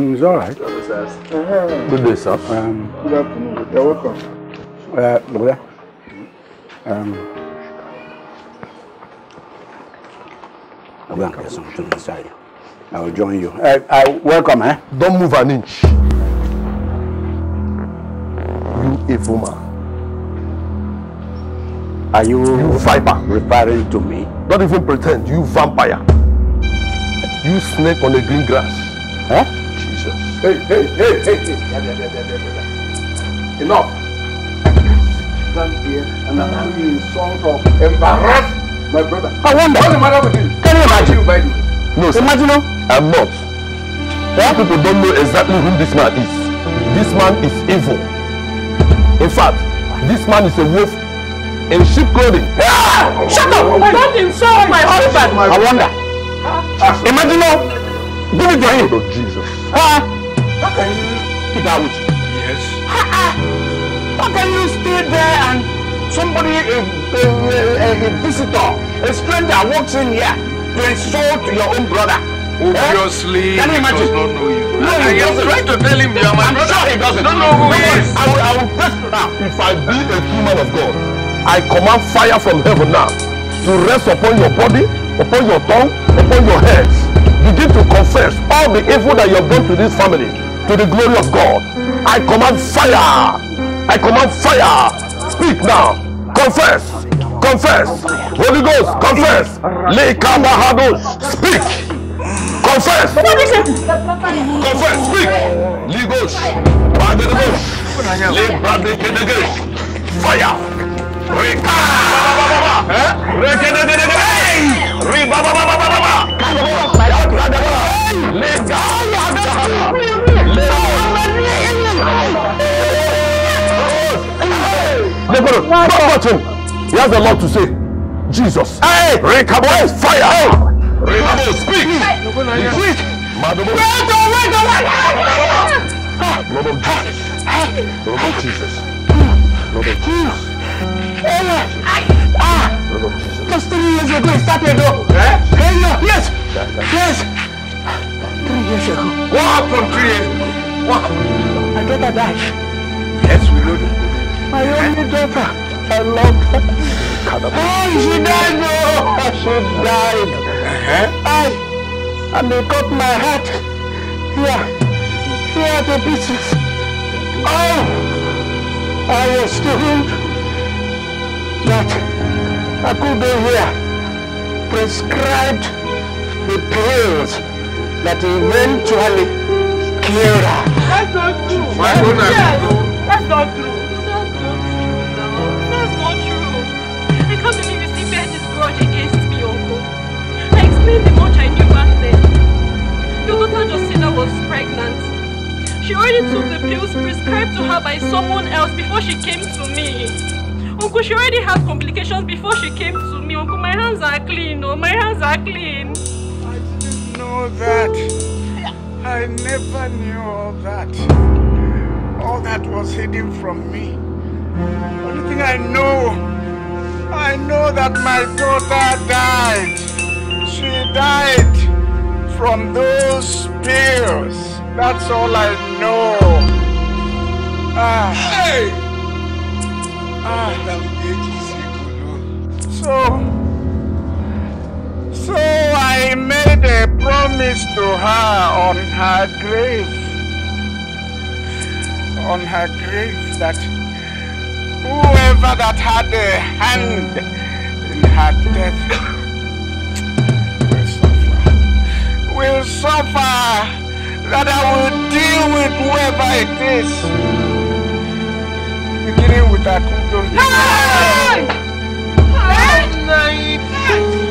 It was all right. Uh, uh-huh. Good day, sir. Um, Good afternoon. You're welcome. Uh, brother. Um, I'll go and get something inside. I will join you. Uh, I uh, welcome, eh? Don't move an inch. You evil man. Are you, you viper referring to me? Don't even pretend. You vampire. You snake on the green grass. Eh? Hey, hey, hey, hey, hey. Yeah, yeah, yeah, yeah, yeah, yeah. Enough. Stand here and allow you insult or embarrass my brother. I wonder. What's the matter with you? Can you imagine? You by no, sir. Imagine. I'm not. Why people don't know exactly who this man is. This man is evil. In fact, this man is a wolf in sheep clothing. Ah! Shut up! Oh, don't insult my husband. I wonder. Huh? Ah! Imagine. Give it to him. Oh, Jesus. Ah! can you keep out with you? Yes. Ha -ha. How can you stay there and somebody, a, a, a, a visitor, a stranger walks in here to insult your own brother? Obviously, eh? Can you imagine? he does not know you. No, I, I am trying to tell him you are my I'm brother. sure he doesn't. Don't know who he is. I will, I will press now. If I be a true man of God, I command fire from heaven now to rest upon your body, upon your tongue, upon your heads. Begin to confess all the evil that you have done to this family. to the glory of God. I command fire. I command fire. Speak now. Confess. Confess. Holy Ghost, confess. Lekabahado. Speak. Confess. Confess. Speak. Ligos. the Lebradekedegesh. Fire. Reka. Rekedegedege. Reba. they He has a lot to say. Jesus. Hey! Rekabo, fire! Hey! Rekabo, speak! Hey. Speak! Madam. Wait, wait, wait! Lord of Jesus. Lord of Jesus. Lord of Jesus. Lord ah! of Jesus. Just three years ago, he started though. Eh? Hey, no, yes! Yes! Three years ago. What happened three years ago? What? I thought I died. Yes, we know that. My only daughter. I love her. Oh, she died, no! She died. Uh-huh. I, and they cut my heart. Here, here the pieces. Oh, I was told that I could be here, prescribed the pills that eventually killed her. That's not true. Why would that's not true. was pregnant. She already took the pills prescribed to her by someone else before she came to me. Uncle, she already had complications before she came to me. Uncle, my hands are clean. Oh, my hands are clean. I didn't know that. I never knew all that. All that was hidden from me. Only thing I know, I know that my daughter died. She died from those spears. That's all I know. Ah. Hey! Ah. So, so I made a promise to her on her grave. On her grave that whoever that had a hand in her death suffer, that I will deal with whoever it is. Beginning with Akunjo. Hey! Hey! Hey!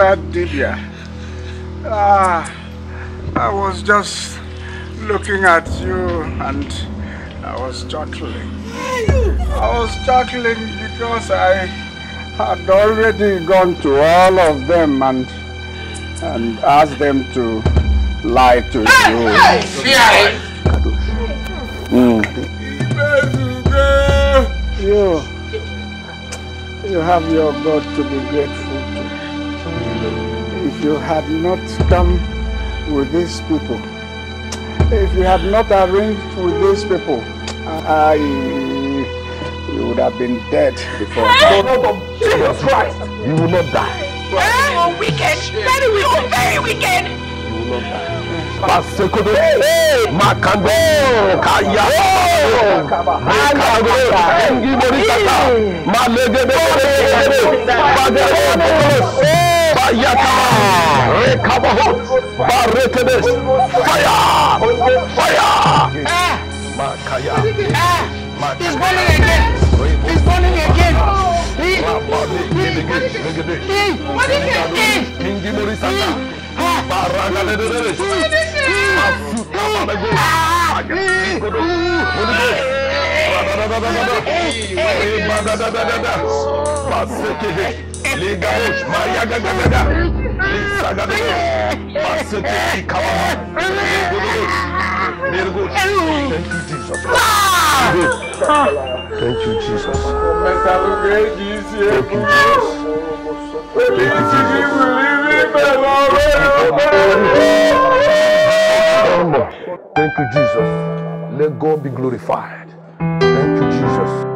bad Dibia. Ah, I was just looking at you and I was chuckling. I was chuckling because I had already gone to all of them and and asked them to lie to you. Mm. You, you have your God to be grateful. if you had not come with these people, if you had not arranged with these people, I, you would have been dead before. Hey, no, no, no, Jesus Christ, you will not die. Oh, wicked, very wicked, very wicked. You will not die. Basekodo, Makando, Bayata Rekabahot Barretedes Fire Fire eh. Makaya eh. He's burning again He's burning again He He What is it? Hingi Morisata Baranga de Deres What is it? Ah! Hey! Hey! Hey! Ligaus, Maria Gagagada, Lisa Gagada, Masete Ikawa, Nirgus, Nirgus. Thank you, Jesus. Thank you, Jesus. Thank you, Jesus. Thank you, Jesus. Thank you, Jesus. Let God be glorified. Thank you, Jesus.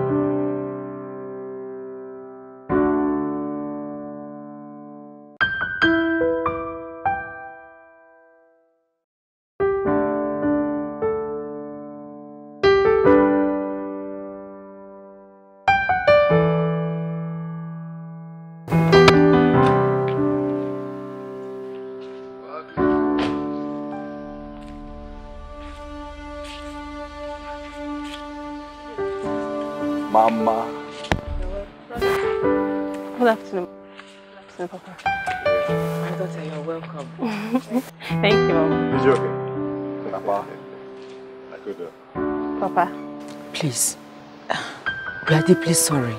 are deeply sorry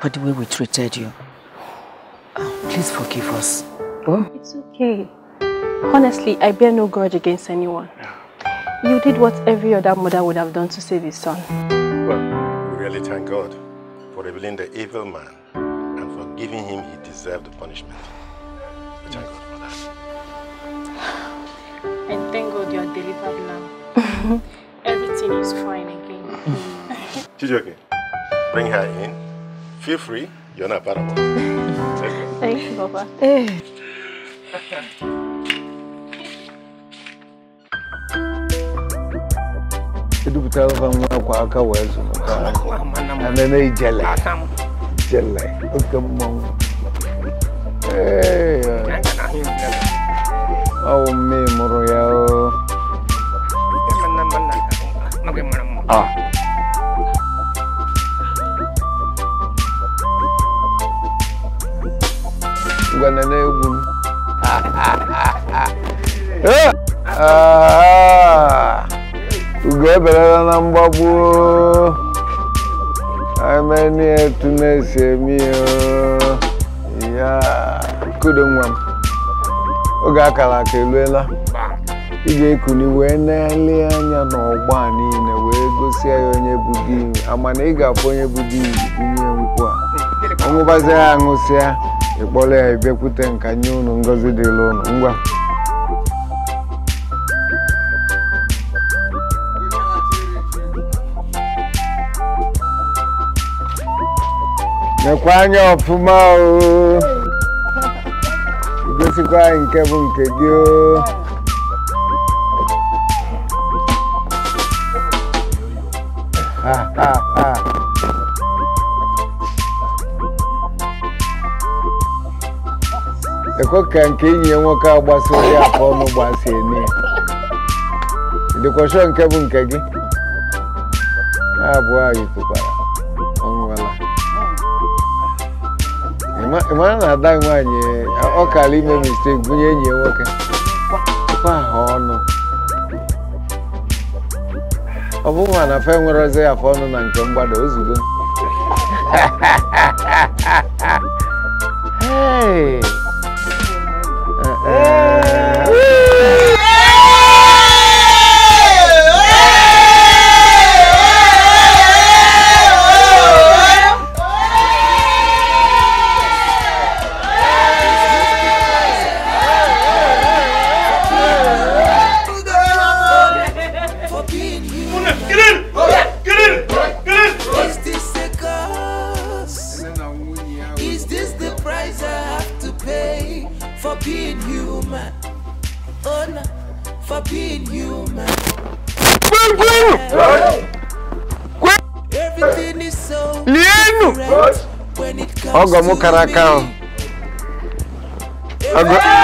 for the way we treated you. Oh, please forgive us. Oh? It's okay. Honestly, I bear no grudge against anyone. You did what every other mother would have done to save his son. Well, we really thank God for revealing the evil man and for giving him he deserved the punishment. We thank God for that. And thank God you are delivered now. <laughs> Everything is fine again. okay? bring her in. Feel free. You're not part of us. Thank you, Papa. isso. Eu não sei se você está fazendo isso. Eu não sei se você está fazendo isso. ngwana na-egwu m ugo eberela na mgbagbu ha etu na-esi eme ya kudo nwa m oge akara aka eluela ị ga-ekuli wee na-ele anya n'ọgba niile wee gosi ya onye bụ di amana ị ga-abụ onye bụ di bunye nkwụ a ọṅụbazi ya ṅụsịa ịkpọrọ ya ibekwute nka nye unu ngozi dịla unu ngwa mekwa anya ọfụma o gosikwa anyị nke bụ nke gị o akụ ka nke enyi ya nwoke agbasi ụdị afọ ọnụ gbasi eme ya dịkwasho nke bụ nke gị abụọ anyị tụkwara ọnwụla ị na ada nwanyị ọkara ime mistake gụnye enyi ya nwoke ọnụ ọ bụghị ma na fe nwere ya afọ ọnụ na nke mgbada ozugbo <laughs> Vamos, caracal Agora...